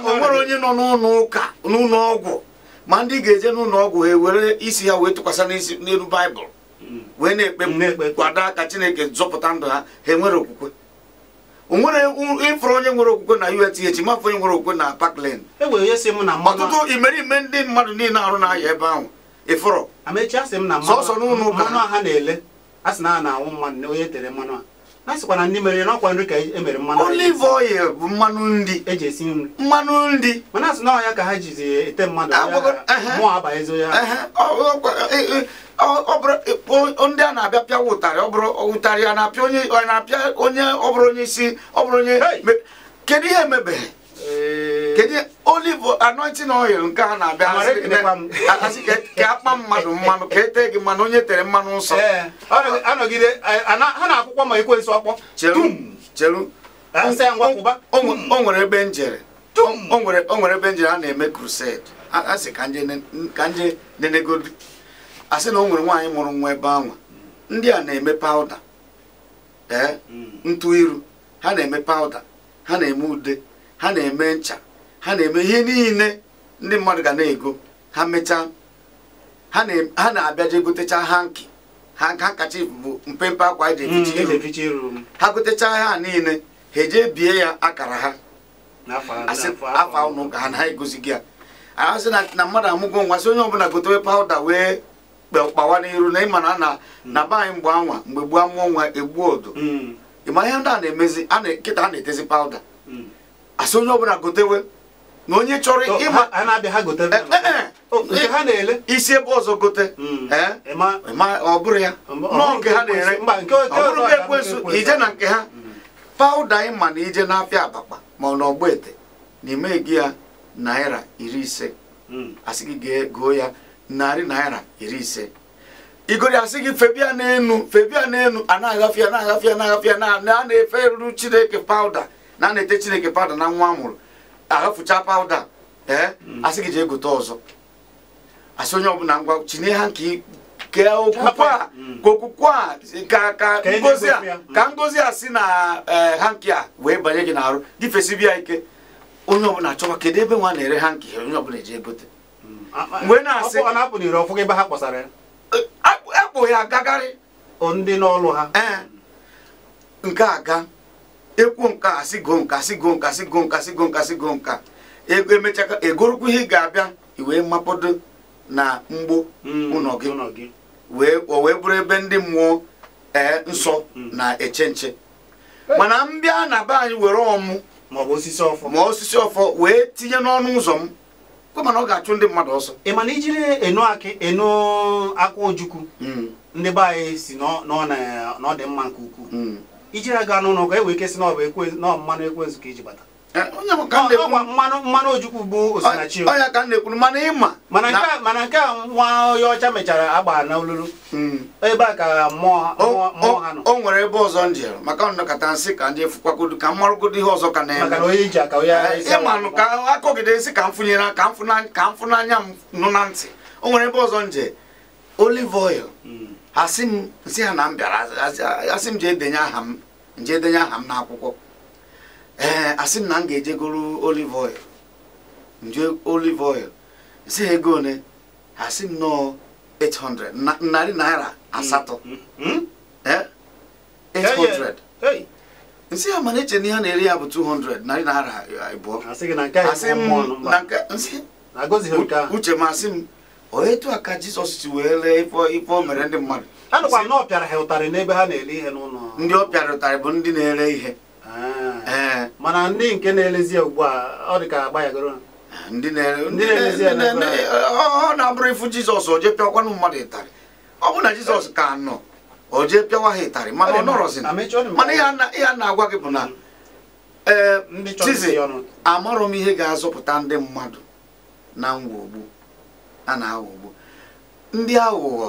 onwere onye nọ n'ụlọ ụka n'ụlọ ọgwụ ma ndị ga-eje n'ụlọ ọgwụ ha ewere isi ya wee tụkwasị n'isi n'elu baịbụl hmm. wee na-ekpe kwado aka chineke zọpụta ndụ ha ha enwere okwukwe onwere ịfụrụ onye nwere okwukwe na UTH mafụ onye nwere okwukwe na Parkland e ọtụtụ imerime ndị mmadụ niile arụ na-aya ebe ahụ ịfụrụ sọsọ n'ụlọ ụka na sịkwa na ndị mere n'ọkwa nri ka emere mmanụ olive oil bụ mmanụ nri eji esi nri mmanụ nri mana asị ahụ ya ka ha jizi ete mmadụ mụọ abaghịzo ya e, e, ọ bụrụ e, ndị a na-abịa pịa ụtarị ọ bụrụ ụtarị ya na-apịa onye ọ apịa onye ọ bụrụ onye isi ọ bụrụ onye kedu ihe emebeghị kedu olive anointing oil nke <laughs> a na-abịa ka e, akpa mmadụ mmanụ ka etee gị mmanụ onye tere mmanụ nsọ ha na-akwụkwọ ma ekwensu ọkpọ cheru o nwere ebe njere o nwere ebe njere a na-eme crusade asị ka nje nenegodi asị na o nwere nwaanyị mụrụ nwa ebe anwa ndị a na-eme pawuda ee mm. ntụ iru ha na-eme pawuda ha na-eme ude ha na-eme ncha ha na-eme ihe niile ndị mmadụ ga na-ego ha mechaa ha na je gotecha ha nkị ha kacha bụ mpempe akwa e ji hmm, e iru ha gotecha ha niile ha eje bie ya akara ha afọ ụnụ ka ha na ha egozigi ya ahasị na mmadụ amụgo nwa sị onye ọbụla gotewe pawuda wee kpawa n'iru na ịma na hmm. na be anyị mgbe anwa mgbe gbuo amụọ nwa egbuo odo hmm. ịma ihe ndị a na-emezi kịta a na-etezi pawuda asị onye ọbụla gotewe na onye chọrọ ịma isi ebe ọzọ gote hmm. eh? ọ bụrụ ya nọọ nke ha na-ere ọ bụrụ ekwensu ije na nke ha hmm. pawụda ịma na ije n'afịa abakpa ma ọ n'ọgbọ ete na ime gị ya naira iri ise hmm. asị gị goo ya narị naira iri ise igori asị gị febia n'enu febia n'enu a na-agafe ya na-agafe na-agafe na a na-efe ruru chineke pawụda na a na-ete chineke pawụda na nwa a ahafụcha pawuda ee eh? mm. asị gị jee gote ọzọ asị onye ọbụla ngwa chinye ha nke ke okwukwe a mm. ka okwukwe a ka ka ngozi a ka ngozi a si na eh, hanki a wee banye gị n'arụ ya ike onye ọbụla chọwa kedu ebe nwa na-ere hanki onye ọbụla eji egote mm. mgbe na-asị ebe ha akpụ ya eh, agagarị ndị n'ọlụ ha nke aga ịkwụ nka asị goo nka asị goo nka asị goo nka asị goo nka asị goo nka ego emechaka egorokwu ihe ị ga-abịa iwee mapado na mgbo hmm, ụlọ gị o wee bụrụ ebe ndị mmụọ ee nsọ hmm. na-eche nche mana m bịa na be anyị were ọmụ ma osisi ọfọ wee tinye n'ọnụ ụzọ m mana ọ ga-achụ ndị mmadụ ọsọ ị mana ijiri enu akị enu akwa ojukwu hmm. ndị be anyị si na ọ nke ukwuu iji aga anụ ụlọ ka e wee kesị na ọ bụ ekwe na mmanụ ekwensu ka iji bata eh, mmanụ mmanụ ojukwu bụ osinachi ọya ka na-ekwuru mana ịma mana nke a nwa onye ọcha mechara agba na olulu hmm. ebe a ka mmụọ ha nọ o nwere ebe ọzọ ndị maka nnọkọta nsị ka ndị fụkwakodu ka mmarụgodo ihe ọzọ ka na-eme maka onye iji aka onye eh, ịmanụ ka akọgide nsị ka m fụnyere ka m fụnanya m nụ na ntị o nwere ebe ọzọ nje olive oil hmm. asị m nsị ha na m bịara asị m jee denye aha m denye aha m n'akwụkwọ ee asị m na m ga-ejegoro olive oil nje olive oil nsị ha ego one asị m nọọ 800 narị naira asatọ 800 hmm, hmm, hmm. nsị ha mana eche na ihe na-eri ya bụ 200 narị naira abụọ uche m asị m etu a ka jizọs si wee lee ife o mere ndị mmadụ anụkwa na ọ pịara ha ụtarị n'ebe ha na-ele ihe n'ụlọ ndị ọ pịara ụtarị bụ ndị na-ere ihe ah. eh. mana ndị nke na-elezi ugbu a ọ dị ka agbanyegoro ndị na-elezi ya ọ na-abụrụ ifu jizọs oje pịakwanụ mmadụ ịtarị ọ bụ na jizọs ka nọ o oje pịawa ha ịtarị mana ọ nọrọzi mana ihe a na-agwa gị bụ na mm. ee eh, tizi amarọ m ihe ga-azọpụta ndị mmadụ na ngwogbu a na-aghọgbu ndị aghụghọ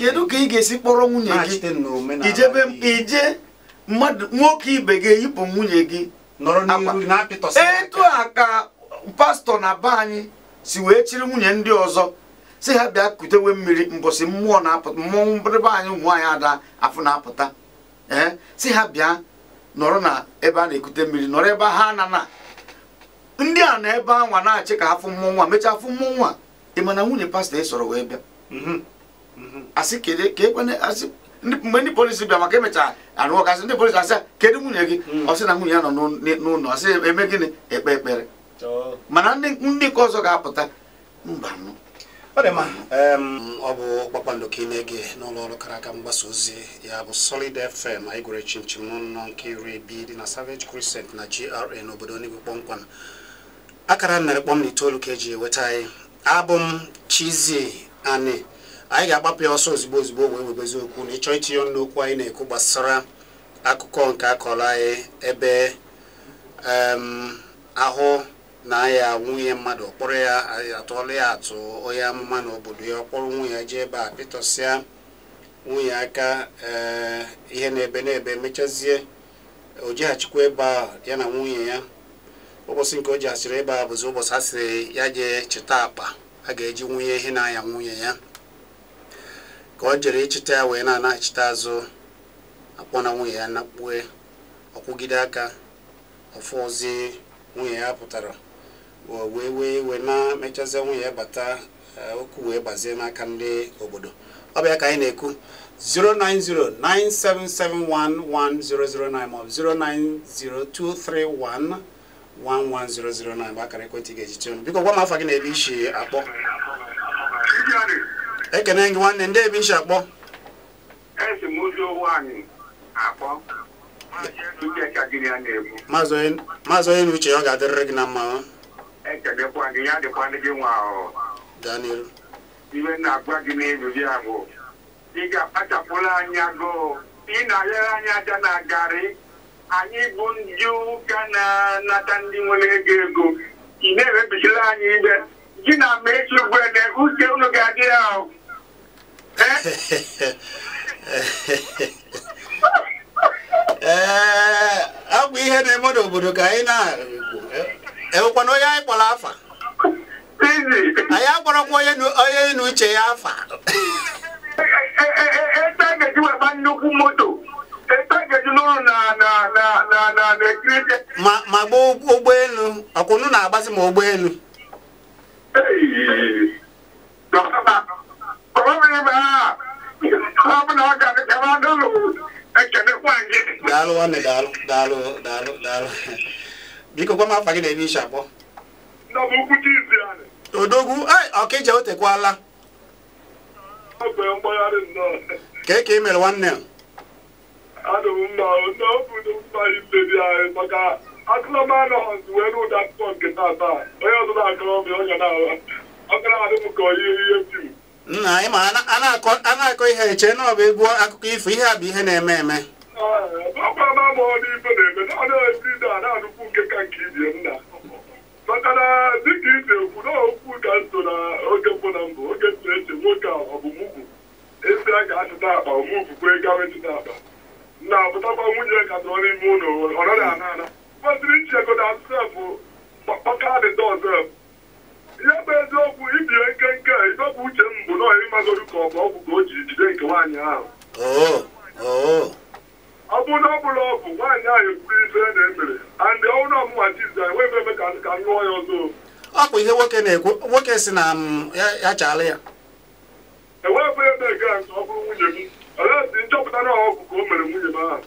kedu ka ị ga-esi kpọrọ nwunye gị ijebe ije mmadụ nwoke ibe gị eyipụ nwunye gị etu a ka pastọ na be anyị si wee chiri nwunye ndị ọzọ si ha bịa kutewe mmiri mbọsị mmụọ na-apụta mmọnwụ mbịrịba anyị ụmụ anyị ada afụ na-apụta ee si ha bịa nọrọ na ebe a na-ekute mmiri nọrọ ebe ha anana ndị a na ebe anwa na-achị ka afọ mmụọ nwa mechaa afọ mmụ nwa ị mana nwunye pastọ ị sọrọ wee bịa mhm. Mhm. E mgbe ndị polisi bịa maka emechaa arụ ọkasị ndị polisi asị kedu nwunye gị mhm. ọ sị na nwunye ya nọ n'ụlọ ọ sị eme gịnị ekpe ekpere mana ndị nke ọzọ ga-apụta mba mm, ọ bụ kpakpando ka ị na-ege n'ụlọ ọrụ kara aka mgbasa ozi ya bụ Solid FM anyị gwere chimchim n'ụlọ nke iri bi dị na Savage Crescent na GRA n'obodo Enugu kpọmkwam. akara mere kpọm na itoolu ka eji eweta anyị abụ m Chizzy Ani anyị ga-agbapụ ya ọsọ ozugbo ozugbo wee webezi okwu na ịchọ itinye ọnụ okwu anyị na-ekwu gbasara akụkọ nke akọrọ anyị ebe ahụ na-aya nwunye mmadụ kpọrọ ya atụọla ya atụ onye amụma n'obodo ya ọ kpọrọ nwunye ya jee ebe a pịtọsịa nwunye aka eh, ihe na-ebe na-ebe mechazie o ebe a ya na nwunye ya ụbọchị nke o ji asịrị ịba bụzi ụbọchị a sịrị ya jee chịta akpa a ga-eji nwunye ihe na-anya nwunye ya ka ọ jere ịchịta ya wee na-ana azụ akpọ na nwunye ya nakpue ọkwụgide aka ọfụzi nwunye ya pụtara wee wee wee na-emechazie nwunye ya bata eh, okwu wee gbazie n'aka ndị obodo ọ bịa ka anyị na-ekwu 09097711009 maọbụ 0902311 11009 bụ akara ekwentị ga-eji tie biko gwa m afa gị na ebe isi akpọ ekene gị nwanne ndị ebe isi akpọ maazị onye na uche ọ ga-adịrịrị gị na mma Daniel iwe na-agwa gị n'elu ya bụ ị ga-akpachapụla anya gụụ ị na-ayere anya aja na garị anyị bụ ndị ụka na-anata ndị nwere ego ego ị na-ewebisila anyị ibe gị na ma echi ugbene uche unu ga-adị ya ahụ <laughs> ee eh? eh, ọ bụ ihe na-eme n'obodo ka anyị na-ekwu enwekwana onye anyị kpọrọ afa anyị akpọrọkwa onye na n'uche ya afa <laughs> eh, ebe a ga-eji weba nnukwu moto ma gbaa ụgbọelu ọkwa unu na-agbazi ma ụgbọelu daalụ nwanne daalụ daalụ daalụ daalụ biko gwa m afa gị na-eme iche odogwu eh, ọkịja o ka e ka ị mere nwanne a adụ eh, m mma ụtọ obodo mkparị anyị maka akụlọmanụ ọzụ wee n'ụdị akwụkwọ nke onye ọzọ na-akọrọ m ọnya na-awa ọkara adị m ka onye ihe nna anyị ma a na-akọ ihe eche na ọ bụ egwu akụkọ ifo ihe a bụ ihe na-eme eme ah, eh, ọkwara ma na-eme na ọdụ na na-anụkwu nke ka nke ibie nna maka na dịka ekwu na okwu ka nso na oge mbụ na mbụ oge eche nwoke a ọ a ga-achịta akpa kwee akpa na abụtakwa nwunye ka nọ n'ime ụlọ ọ naghị ana ana kwesịrị ichego na sef pakadịta ọzef ihe bụ eziokwu ibie nkenke idọpụ uche m bụ nọọ ịmagodu ka ọ bụ ọgwụ ka o ji jide nke nwaanyị ahụ oh, oh. ọ bụ na ọ bụla ọ bụ nwaanyị ahụ ekwuru ife na emere andị ọhụrụ ọmụma tiza enweghị ebe ka nụọ ya ọzọ ọ bụ ihe nwoke na-ekwu nwoke si na mm, ya chaala ya nchọpụta na ọgwụ ka o mere nwunye m ahụ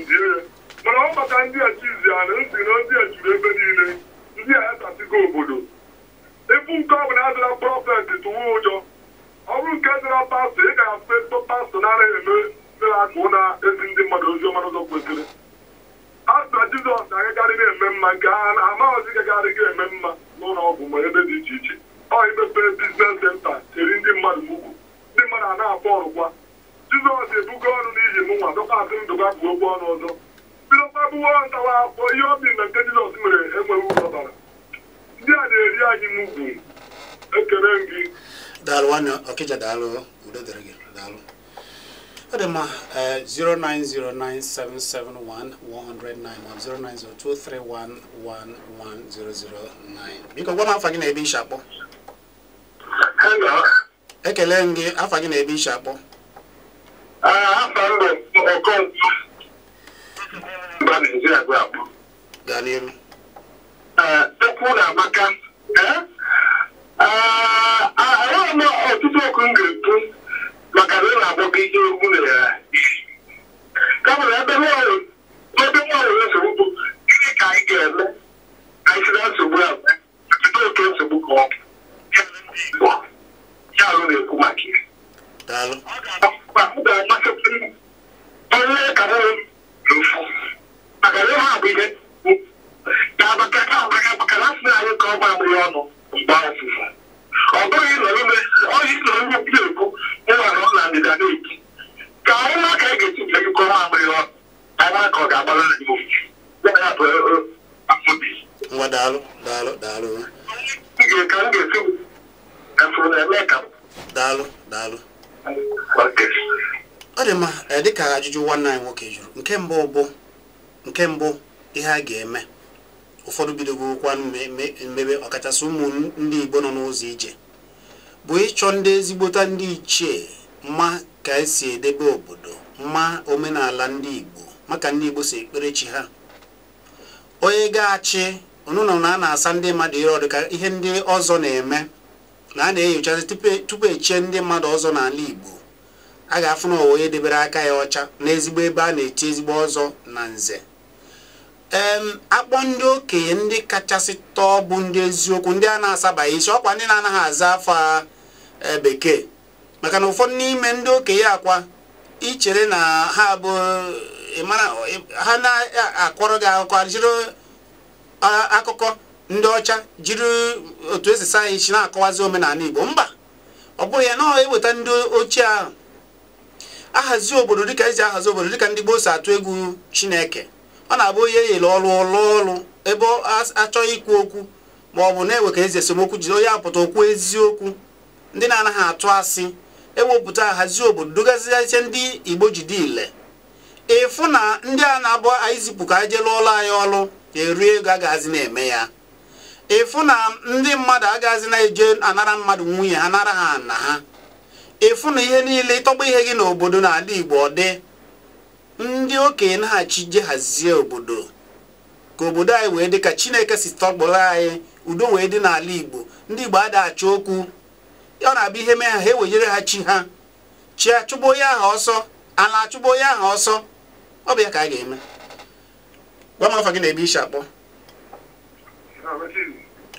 ya mana ọ maka ndị a chizi a na ntị na ndị a juru ebe niile ndị a yatasigo obodo ebu nke ọ bụla adịla prọfet tụwa ụjọ ọ bụrụ nke dịla pastọ ị ga-afụ pastọ na-anaghị eme ndị na-akụ na ezi ndị mmadụ ozi ọma n'ụzọ kwesịrị asịna jizọs na-agagarị na-eme mma nke ha amaghịzi gagarị ga-eme mma n'ụlọ ọgwụ ma ebe dị iche iche ọ imepe biznes senta cheri ndị mmadụ ugwu ndị mmadụ a na-akpọ ọrụkwa jizọs ebugo ọrụ n'iji m nwa dọkwa asị ndụ ga kwuo ụgwọ ọnụ ọzọ bidokwa bụwo ntawa akwụkwọ ihe ọ dị na nke jizọs mere enweghị ụzọbara ndị a na-eri anyị m ugwu ekele m gị daalụ nwanne ọkịja daalụ udo dịrị gị daalụ ọ dị mma 09097711091 eh, 09023111009 biko gwa m afa gị na ebe ishi akpọ ekele m gị afa gị na ebe ishi akpọ afa mbẹ ọkọ ntu ba Nigeria gbé àpò. Daniel. Ekwu na Amaka ahụghị m ọtụtụ ọkụ m ga-ekwu maka na ọ na-agbọ gị ihe egwu na ya kamụna ebe nwaanyị ebe nwaanyị nsogbu bụ gịnị ka anyị ga-eme ka anyị si na nsogbu a jide oke nsogbu ka ọ bụ ya ndị Igbo ya alụ na-ekwu maka nwanne anyị nwoke jụrụ nke mbụ bụ nke mbụ ihe a ga-eme ụfọdụ bidogokwa mmebe ọkachasị ụmụ ndị igbo nọ n'ụzọ ije bụ ịchọ ndị ezigbota ndị ichie ma ka esi edebe obodo ma omenala ndị igbo maka ndị igbo si ekpere chi ha onye ga-achị ọnụnọ na a na-asa ndị mmadụ ihe ọdịka ihe ndị ọzọ na-eme na a na-enyochazi tupu echie ndị mmadụ ọzọ n'ala igbo a ga-afụ na onye debere aka ya ọcha n'ezigbo ebe a na-eti ezigbo ọzọ na nze akpọ ndị okenye ndị kachasị tọọ bụ ndị eziokwu ndị a na-asabaghị isi ọkwa ndị na-anaghị aza afọ e, bekee maka na ụfọdụ n'ime ndị okenye akwa ichere na ha bụ ha na-akọrọ gị akụkọ jiri akụkọ ndị ọcha jiri otu esi saa isi na-akọwazi omenala Igbo mba ọ bụghị ya na eweta ndị ochie ahụ ahazi obodo dịka eze ahazi obodo dịka ndị gboo si atụ egwu chineke ọ na-abụ onye eyere ọrụ ọrụ ọrụ ebe achọghị ikwu okwu ma ọ bụ na-ewe ka eze esemokwu jide onye apụta okwu eziokwu ndị na-anaghị atụ asị ewepụta ahazi obodo dogazighasie ndị igbo jide ile ịfụ na ndị a na-abụ anyị zipụ ka anyị jee lụọ ọrụ ọlụ e ọrụ eri ego agaghịzi na-eme ya ịfụ na ndị mmadụ agaghịzi na-eje anara mmadụ nwunye ha nara ha na ha efu na ihe niile ịtọgba ihe gị n'obodo n'ala Igbo ọ dị ndị okenye naghachi je hazie obodo ka obodo anyị wee dị ka Chineke si tọgbọrọ anyị udo wee dị n'ala Igbo ndị Igbo ada okwu ọ na-abịa ihe mee ha ha ewejere ha chi ha chi achụgbu onye ahụ ọsọ ala achụgbu onye ahụ ọsọ ọ bụ ya ka a ga-eme gwa m afọ gị na-ebe ishi akpọ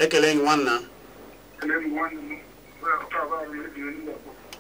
ekele gị nwanna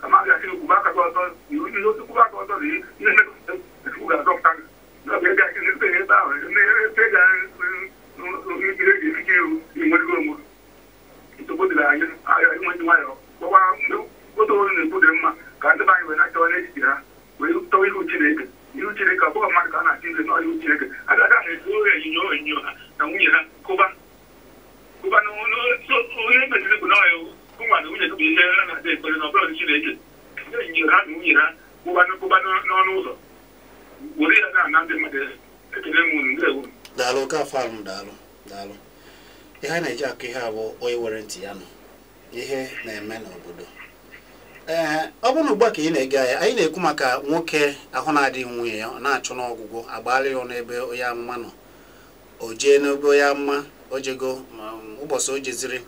kamar ya shi kuma ka zuwa zuwa yiwu yiwu su kuma ka zuwa yi ne ne da su ga zuwa kan na bai ga shi ne sai ya ba ne ne sai ga ne ne ne ne ke yi wani gomu ita gudu da yi a yi wani wayo ko ba mu ko to ne gudu ma ka da bai wani ta wani jira wai to yi ku ci ne ku ci ne ka ko ma ka na ci ne no yi ku ci ne daalụ daalụ daalụ ihe na-eji akụ ihe abụ onye nwere ntị ya nọ ihe na-eme n'obodo ee ọ bụrụ na ugbu a ka ị na-ege anyị anyị na-ekwu maka nwoke ahụ na-adịghị nwunye ya ọ na-achụ n'ọgwụgwọ agbalị ya n'ebe onye amụma nọ o jee n'ebe onye amụma o jego ụbọchị o jeziri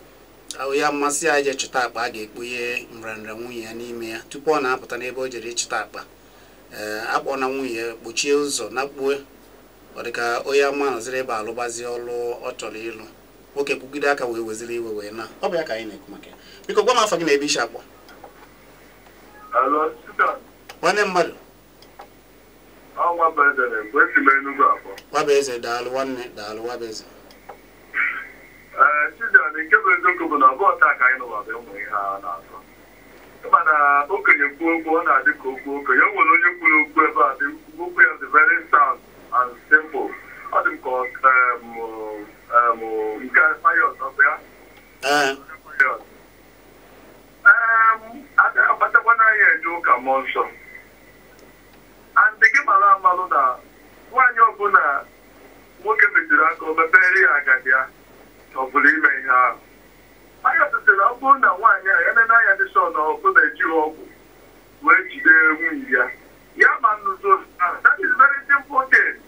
onye amụma sị ya jee chụta akpa a ga-ekpughe nrịanrịa nwunye ya n'ime ya tupu ọ na-apụta n'ebe o jere ịchụta akpa ee akpọ na nwunye ya kpochie ụzọ na kpuo ọ dị ka onye ama nọziri ebe alụgbazi ọlụ ọ chọrọ ịlụ nwoke kwugide aka wee weziri iwe wee na ọ bụ ya ka anyị na-ekwu maka biko gwa m afọ gị na ebe isi akpọ nwanne mmadụ wabaeze daalụ nwanne daalụ wabaeze mana okenye kwuo okwu ọ na-adị ka okwu okenye o nwere onye kwuru okwu ebe a dị okwu ya dị very sound and simple ọ dị m ka nke payọs ọbụ ya akpatakwana anyị eje ụka mmụọ nsọ andị gị mara amalụ na nwaanyị ọbụla nwoke metụrụ aka o mepere ya agadi ya ọ bụrụ ime ihe ahụ anyị ọtụtụ na ọ bụrụ na nwaanyị a ya na anya dị sọ na ọkụ na-ejighị ọgwụ wee jide nwunye ya ya ma nnuzo that is very simple thing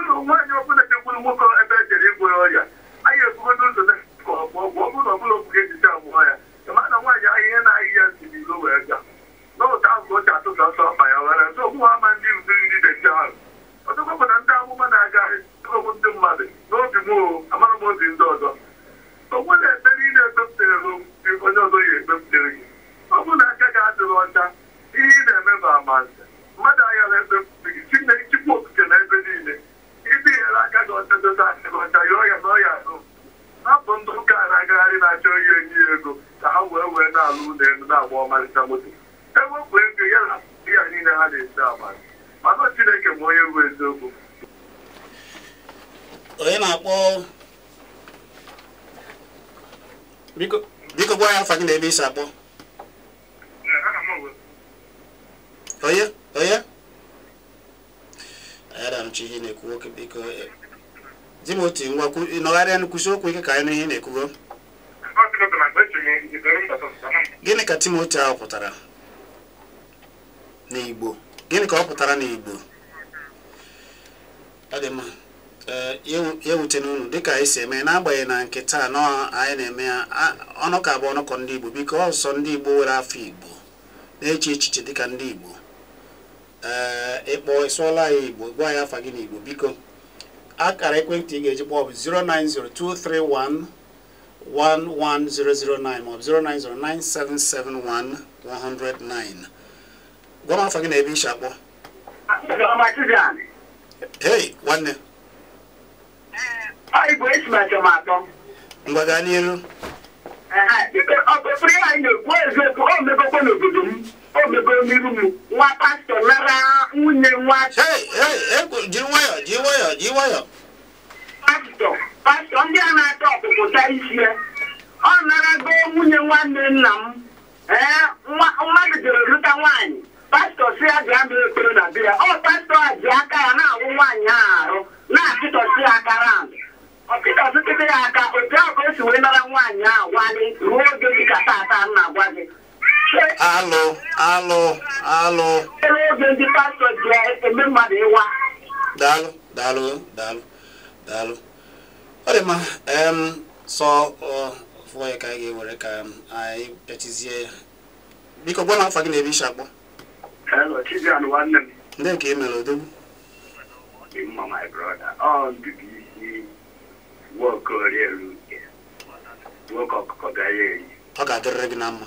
ụlọ nwaanyị ọbụla chekwuru nwoke ebe e jere igwere ọrịa anyị ebugodo ụzọ na ka ọ bụ ọgwụ ọbụla ọbụla obuge ejicha agwụọ ya ịma na nwaanyị ahịhịa na-ahị ya n'ilo wee ga n'ụta azụ oche atụta ọsọ ọkpa ya were nso ọgbụ ha ma ndị udu ndị deji ahụ ọtụkwa bụ na ndị amụma na-agagharị ọgwụ ndị mmadụ n'obi m o amara m obi ndị ọzọ ogbu na-ebe niile ekpepụtere gị onye ọzọ ya ekpepụtere gị ọ bụrụ na aka gị adịghị ọcha ihe ị na-eme bụ amanze mmadụ aghara ekpepụta gị chi na chikwa okike na ebe niile ndị aka gị ọchọchọta aka gị ọcha yọọ ya nọọ ya ahụ hapụ ndị ụka na-agagharị na-achọ ihe enyi ya ego ka ha wee wee na-alụ ụlọ elu na-agba ọmarịcha moto ewepụ ego ya na ya niile ha na-esi abalị mana Chineke ma onye bụ eziokwu onye na-akpọ biko gwa ya na ebe isi akpọ onye adamchi ihe na-ekwu okwu biko Di e, m Timoti ngwakwu e, nọgharịa nkwụsị okwu ike ka anyị n'ihe na-ekwugo gịnị ka Timoti ahụ pụtara n'Igbo gịnị ka ọ pụtara n'Igbo ọ dị mma e, ya ewute n'unu dịka anyị si eme n'agbanyeghị na nke taa nọ anyị na-eme ya ka bụ ọnụkọ ndị Igbo biko ọsọ ndị Igbo nwere afọ Igbo na-eche echiche dịka ndị Igbo Eh, ịkpọ ịsụọla ya igbo gwa ya afa gị n'igbo biko akara ekwentị ị ga-eji kpọọ bụ 09023111009 maọbụ 09097711009 gwa m afa gị na ebe ishi akpọ hey nwanne eh, mgbaga n'iru eh, ọ bụ na-ekwu obego n'iru nwa pastọ nara nwunye nwa jiri jiri ndị a na-ata ọpụpụta ya ọ nara nwunye nwanne nna m ee mmadụ lụta nwaanyị pastọ si ya na ọ a ji aka ya na-awụ nwaanyị a arụ na-achịtọsi ya aka ya aka ahụ o dị ka tata na-agwa gị alụ alụ alụ oge ndị pastọ mmadụ ịwa daalụ daalụ daalụ daalụ ọ dị mma sọ fụọ ya ka anyị ga-ewere ka anyị ya. biko gwa na afa gị na ebe isi akpọ ndị nke emere odogwu ọ ga-adịrịrị gị na mma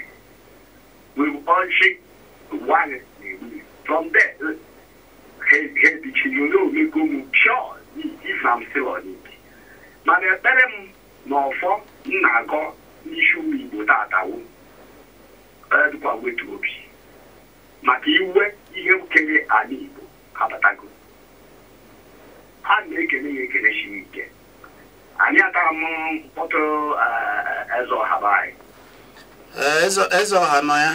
we will unshake one from there hebichinyonyo omego m pịọ ifa m silọniki mana ekpere m ọ ọfọ m na-agọ n'isi ụmụ igbo obi maka iwe ihe nkere ala igbo a na-ekele ya ekele siri ike anyị mkpọtụ eze ọha nọ ya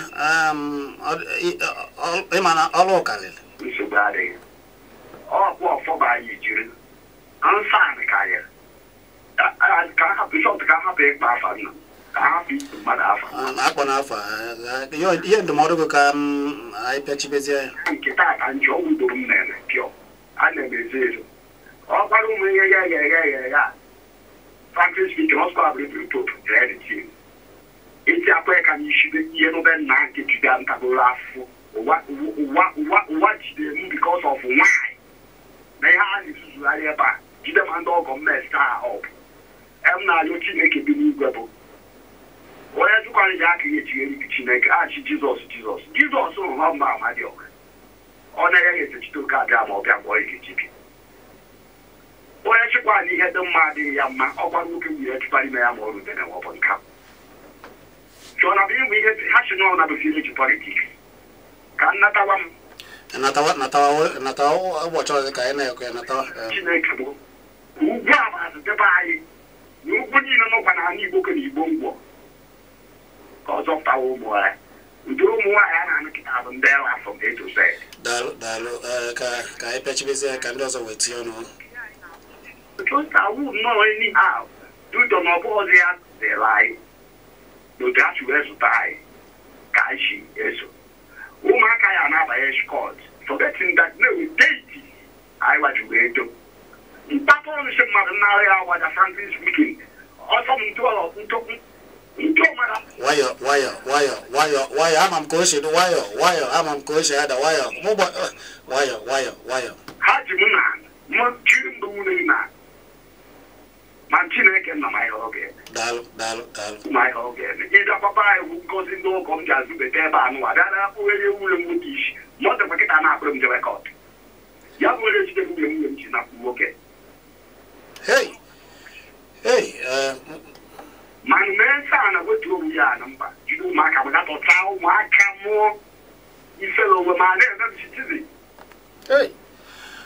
ịma na ọrụ karịrị nsogbu adịghị ọfọba anyị jiri ka ka akpọ ihe ndụmọdụ gị ka anyị pịachibezie ya nke a ụmụ ihe ya ya ya ya ya isi akwa ya ka n'ishibe ihe n'obe nna nke jide ntagoro afọ ụwa jide m bikos of nwanyị na ihe a na-ezuzugharị ebe a jide ndị ọgọ mmesta ha ọbụ em na-alụ chineke bi n'igwe bụ onye jụkwara ya aka ya echigharị chineke achị jizọs jizọs jizọs rụrụ ha mba amadịọka ọ na-enye ya etechite oke abịa ma ọ bịa gwọọ ike jibia onye chịkwara na ihe dị mma adịghị ya mma ọ gwara nwoke nwunye chụkpara ime ya ma ọ rutere ma ọ bụ nka so na bi mu ihe ha si n'ọnụ na-abịa eji politiks ka nnatawa m natawa natawa natawa ụbọchị ọzọ ka anyị na-ekwe natawa chineke bụ ugwu a ma azụtebe anyị na ugwu niile nọkwa na ala igbo ka na igbo mgbọ ka ọzọ ptawa ụmụ ya ụdị ụmụ nwaanyị a na-anụ kịta bụ ndị ewa from a to z daalụ daalụ uh, ka ka anyị pechibezie ka ndị dudo na ọ ya dịrị anyị n'otu wee zụta anyị ka anyị si eso ụmụaka ya na-abanye skọt forgetting that na deiti anyị wajuru edo mpapa ọnụsi mmadụ nnara ya wada frankly speaking ọsọ m ntụọrọ ntụkwu nwayọ nwayọ nwayọ nwayọ nwayọ ama m ka o si dị nwayọ nwayọ ama m ka o si ada nwayọ mụgbọ nwayọ nwayọ nwayọ ha ji m na mụ ji mbụ nwunye na ma chineke nọ ma ihe oge anyị bụ ngozi ndị ụkọ m ji azụbeta ebe a nụwa bịa na akpụgheri nwunye m nwoke isi ma ọ dịkwa kịta na-akpụrụ m jebe kọt ya bụ onye jide nwunye nwunye m ji napụ nwoke mana mee nsa a na wetu onwe ya na mba jide ụmụaka m gatọta ụmụaka mụọ ifere onwe ma na-eme m chitizi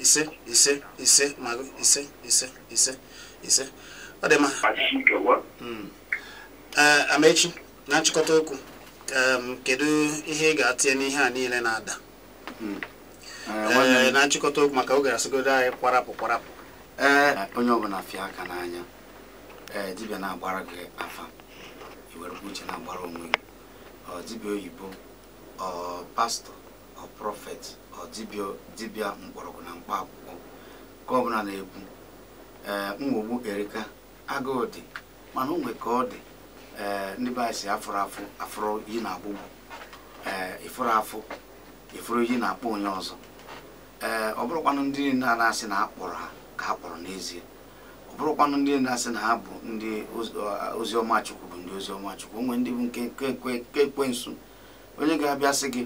ise ise ise magụ ise ise ise ise ọ dị mma ee amaechi na nchịkọta okwu kedu ihe ị ga-atinye n'ihe a niile na-ada hmm. ee eh, eh, na nchịkọta okwu maka oge asịgodo anyị kwarapụ kwarapụ ee eh, onye ọbụla fịa aka n'anya dibia na-agbara gị afa iwerekwa uche na-agbara onwe gị ọ dibịa oyibo pastọ ọ prọfet dibịa mgbọrọgwụ na mkpa akwụkwọ ka ọbụla na-ekwu ee nwogbu erika agụụ dị mana onwe ka ọ dị ee ndị be anyị si afụrụ afụ afụrụ yi na agbụgbụ ee ịfụrụ afụ ịfụrụ yi na akpọ onye ọzọ ee ọ bụrụkwanụ ndị niile na-asị na akpọrọ ha ka a kpọrọ n'ezie ọ bụrụkwanụ ndị na-asị na ha bụ ndị oziọma chukwu bụ ndị oziọma chukwu onwe ndị bụ nke ekwensu onye ga-abịa sị gị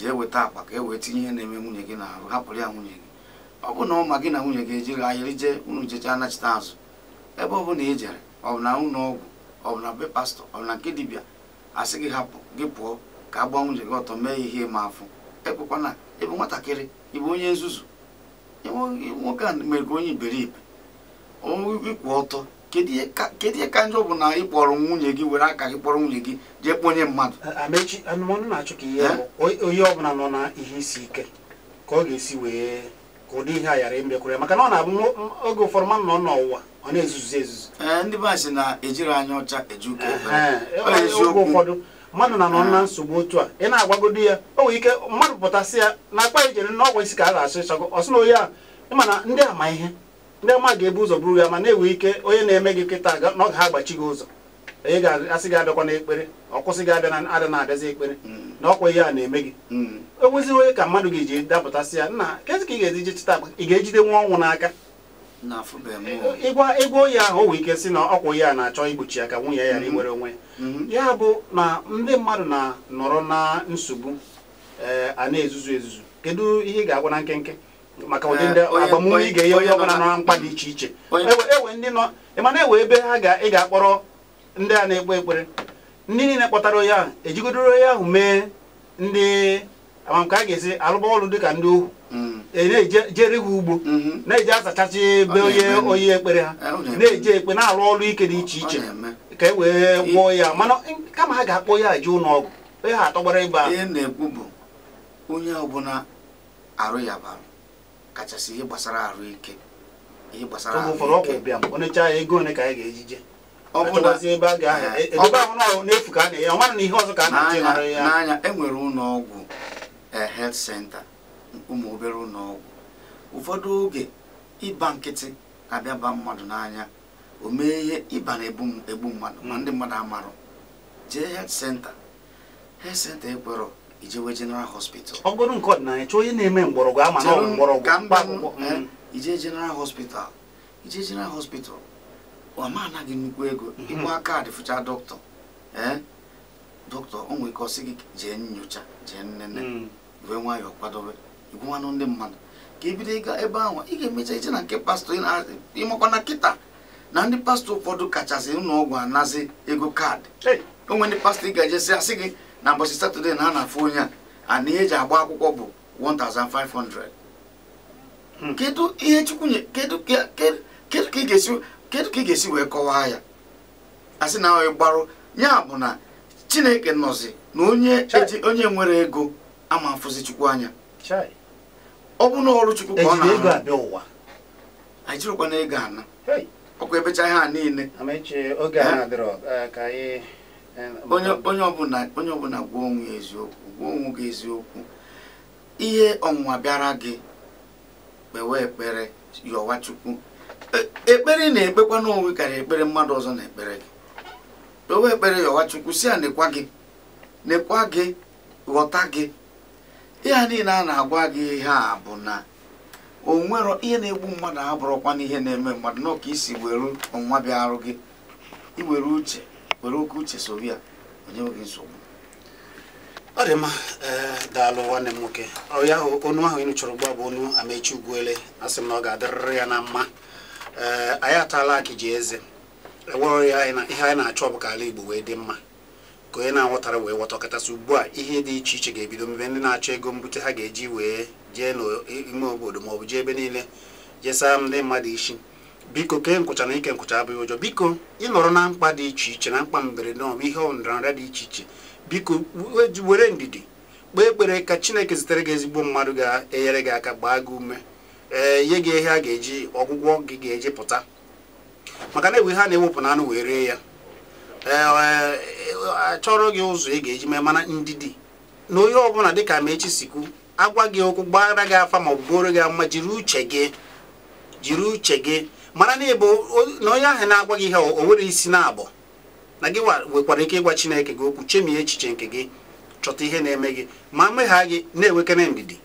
jee weta akpa ka e wee tinye ihe na-eme nwunye gị n'ahụ hapụrụ ya nwunye gị ọ bụ na ọ ma gị na nwunye gị ejiri ahịrị jee unu jecha anachite azụ ebe ọ bụla i jere ọ bụ na ụlọ ọgwụ ọ bụ na be pastọ ọ bụ na nke dibịa asị gị hapụ gị pụọ ka a nwunye gị ọtọ mee ihe ma afụ ekwekwana ebe nwatakịrị ịbụ onye nzuzu nwoke a mere ka onye iberibe ikwu ọtọ kedu ihe ka njọ bụ na ị kpọrọ nwunye gị were aka gị kpọrọ nwunye gị jee kponye mmadụ amechi anụmanụ na-achụ ka ihe onye ọbụla nọ na eh? ihe isi ike ka ọ ga-esi wee ka ụdị ihe a ghara imekwere maka na ọ na-abụ oge ụfọdụ mmanụ nọ n'ụwa ọ na-ezuzu ezuzu eh, ndị be sị na ejiri anya ọcha eji eh, ụka oge ụfọdụ mmadụ na nọ na nsogbu otu a ị na-agwagodo ya o nwere ike mmadụ pụtasị ya na akpa ijere na ọgwụ isi ka a ga-asụ ịchagọ ọ na onye a ịma na ndị ama ihe ndị ama ga-ebu ụzọ buru ya ma na-ewe ike onye na-eme gị nkịta n'oge ha agbachi gị ụzọ onye ga-asị gị abịakwa n'ekpere ọkwụsị gị abịa na ada abịazi ekpere na ọkwa ihe a na-eme gị o mm. e onye ka mmadụ ga-eji dapụtasị ya nna kezi ka ị ga-eji chịta taa ị ga-ejide nwa ọnwụ n'aka ịgwa ịgwa onye ahụ o nwee ike sị na ọkwa ihe a na-achọ igbochi ya ka nwunye ya iwere mm-hmm. onwe ya mm-hmm. ya bụ na ndị mmadụ na-nọrọ na nsogbu eh, a na-ezuzu ezuzu kedu ihe ị ga-agwa na nkenke maka ụdị ndị eh, agbamume ị ga-enye onye ọbụla nọ na mkpa dị iche iche ewe ndị nọ ịmana ewe ebe ha ga ị ga-akpọrọ ndị a na-ekpe ekpere ndị niile kpọtara onye ahụ ejigodoro onye ahụ mee ndị amamka a ga-esi alụba ọrụ dịka ndị ohu hmm. e na-ejere ha ugbo hmm. na-eje azachachi ebe onye onye ekpere ha eh, na-eje ekpe na-alụ ọrụ ike dị iche iche ka e wee gwọọ ya mana kama ha ga-akpọ ya je ụlọ ọgwụ onye ha atọgbara ịba ihe na-ekwu bụ onye ọbụla arụ ya bara kachasị ihe gbasara ahụike ihe gbasara ego ka ga ọ na a e, na ihe ọzọ ka a na ya n'anya enwere ụlọ ọgwụ eh, health center ụmụ obere ụlọ ụfọdụ oge ịba nkịtị abịa ba mmadụ n'anya o mee ihe ịba na-egbu mmadụ ma hmm. ndị mmadụ amarụ jee health center health center ekwerọ ijewe general hospital ọ bụrụ nke ọdịnala chọọ onye na-eme mgbọrọgwụ ama na mgbọrọgwụ mm. eh, ije general hospital ije general hospital ọma anaghị nnukwu ego mhm. ịgba kaadị fụcha dọkịta ee eh? dọkịta o nwere ike ọsị gị jee nyocha jee nnene mm. wee nwayọọ kwadobe igwụwanụ ndị mmadụ ka ebido ịga ebe ahụ ị ga-emecha ije na nke pastọ ịmakwa na kịta na ndị pastọ ụfọdụ kachasị ụlọ ọgwụ anazi ego kaadị o nwere ndị pastọ ị ga-ejesị asị gị na mbọchị satọde na a na-afụ onye a na ihe eji agba akwụkwọ bụ 1500 hmm. kedu ihe chukwu kedu ka ị ga-esi wee kọwaa ya asị na ọ gbarụ ya bụ na chineke nọzi na onye nwere ego ama afụzi chukwu anya ọ bụ na ọrụ chukwu ka ọ na-arụ ajirikwana ego ana ọkwa ebecha ihe a niile onye ọbụla gwa onwe eziokwu gwa onwe gị eziokwu ihe ọnwụnwa bịara gị kpewe ekpere yọwa chukwu e, ekpere na-ekpekwa n'onwe karịa ekpere mmadụ ọzọ na ekpere gị kpewe ekpere yọwa chukwu si ya nekwa gị nekwa gị ghọta gị ịha niile a na-agwa gị ihe a bụ na o ihe na-egbu mmadụ abụrụkwa n'ihe na-eme mmadụ n'ọka isi were ọnwa bịa arụ gị iwere uche were oke uche sobi ya onye nweghị nsogbu ọ dị mma daalụ nwanne m nwoke ọya onu ahụ ịnụ chọrọ gba bụ onu amechi ugwuele asị m na ọ ga-adịrịrị ya na mma ee anyị ataala akị ji eze ewere ya ihe anyị na-achọ ọ bụ ka ala Igbo wee dị mma ka onye na-aghọtara wee ghọta ọkachasị ugbu a ihe dị iche iche ga-ebido mebe ndị na-achọ ego mbute ha ga-eji wee jee n'ime obodo maọbụ jee ebe niile jesaa ndị mmadụ isi biko kee nkụcha na ike nkwụcha abụghị ụjọ biko ịnọrọ na mkpa dị iche iche na mkpa mberede ọma ihe ọnọdụnrịa dị iche iche biko were ndidi kpee ekpere ka chineke zitere gị ezigbo mmadụ ga-enyere gị aka gbaa gị ume ee nye gị ihe a ga-eji ọgwụgwọ gị ga-eji pụta maka na ewe ha na-ewepụ na anụ wee ree ya ee achọrọ e, gị ụzọ ị ga-eji mee mana ndidi na onye ọbụla dịka ma echi sikwu agwa gị okwu gbara gị afa ma ọ gị ama jiri uche gị jiri uche gị mara na ịbụ na onye ahụ na-agwa gị ihe o nwere isi na abụọ na gị nwekwara ike ịgwa chineke gị okwu chemie echiche nke gị chọta ihe na-eme gị ma mmegha gị na-enwekere ndidi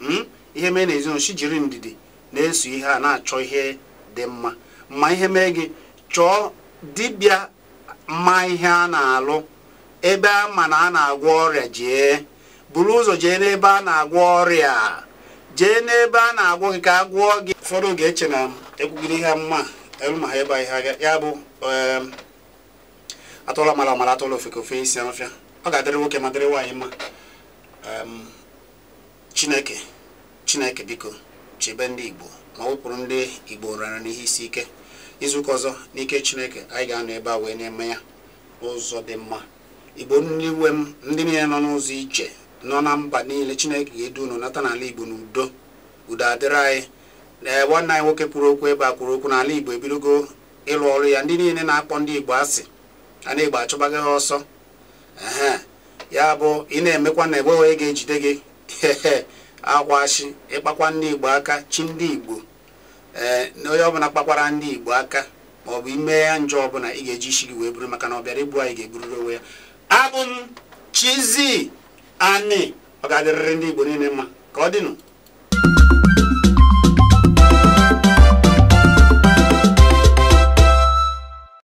hmm? ihe mee na ezinụlọ jiri ndidi na-eso ihe a na-achọ ihe dị mma ma ihe mee gị chọọ dibịa mma ihe a na-alụ ebe a ma na a na-agwọ ọrịa jee buru ụzọ jee n'ebe a na-agwọ ọrịa jee n'ebe a na-agwọ gị ka a gwụọ gị ụfọdụ ga-eche na ekwugide ihe mma ma ha ebe ihe ya bụ atụla mara amara atụla ofeke ofe isi afịa ọ ga-adịrị nwoke ma dịrị nwaanyị mma chineke chineke biko chebe ndị igbo ma wepụrụ ndị igbo rara n'ihe isi ike izuụka ọzọ n'ike chineke anyị ga-anọ ebe a wee na-eme ya n'ụzọ dị mma igbo ndị iwe m ndị niile nọ n'ụzọ ije nọ na mba niile chineke ga-edu unu nata n'ala igbo n'udo udo adịrị anyị ee nwanne anyị nwoke kwuru okwu ebe a kwuru okwu n'ala igbo ebidogo ịlụ ọrụ ya ndị niile na-akpọ ndị igbo asị a na-igbo achụbaghị ha ọsọ ee ya bụ ị na-emekwa na egbe onye ga-ejide gị akwashi ịkpakwa ndị igbo aka chi ndị igbo ee na onye ọbụla kpakwara ndị igbo aka maọbụ ime ya njọ ọbụla ị ga-eji isi gị wee buru maka na ọ bịara igbu anyị ga ebururu onwe ya abụ m anị ọ ga-adịrịrị ndị Igbo niile mma ka ọ dịnụ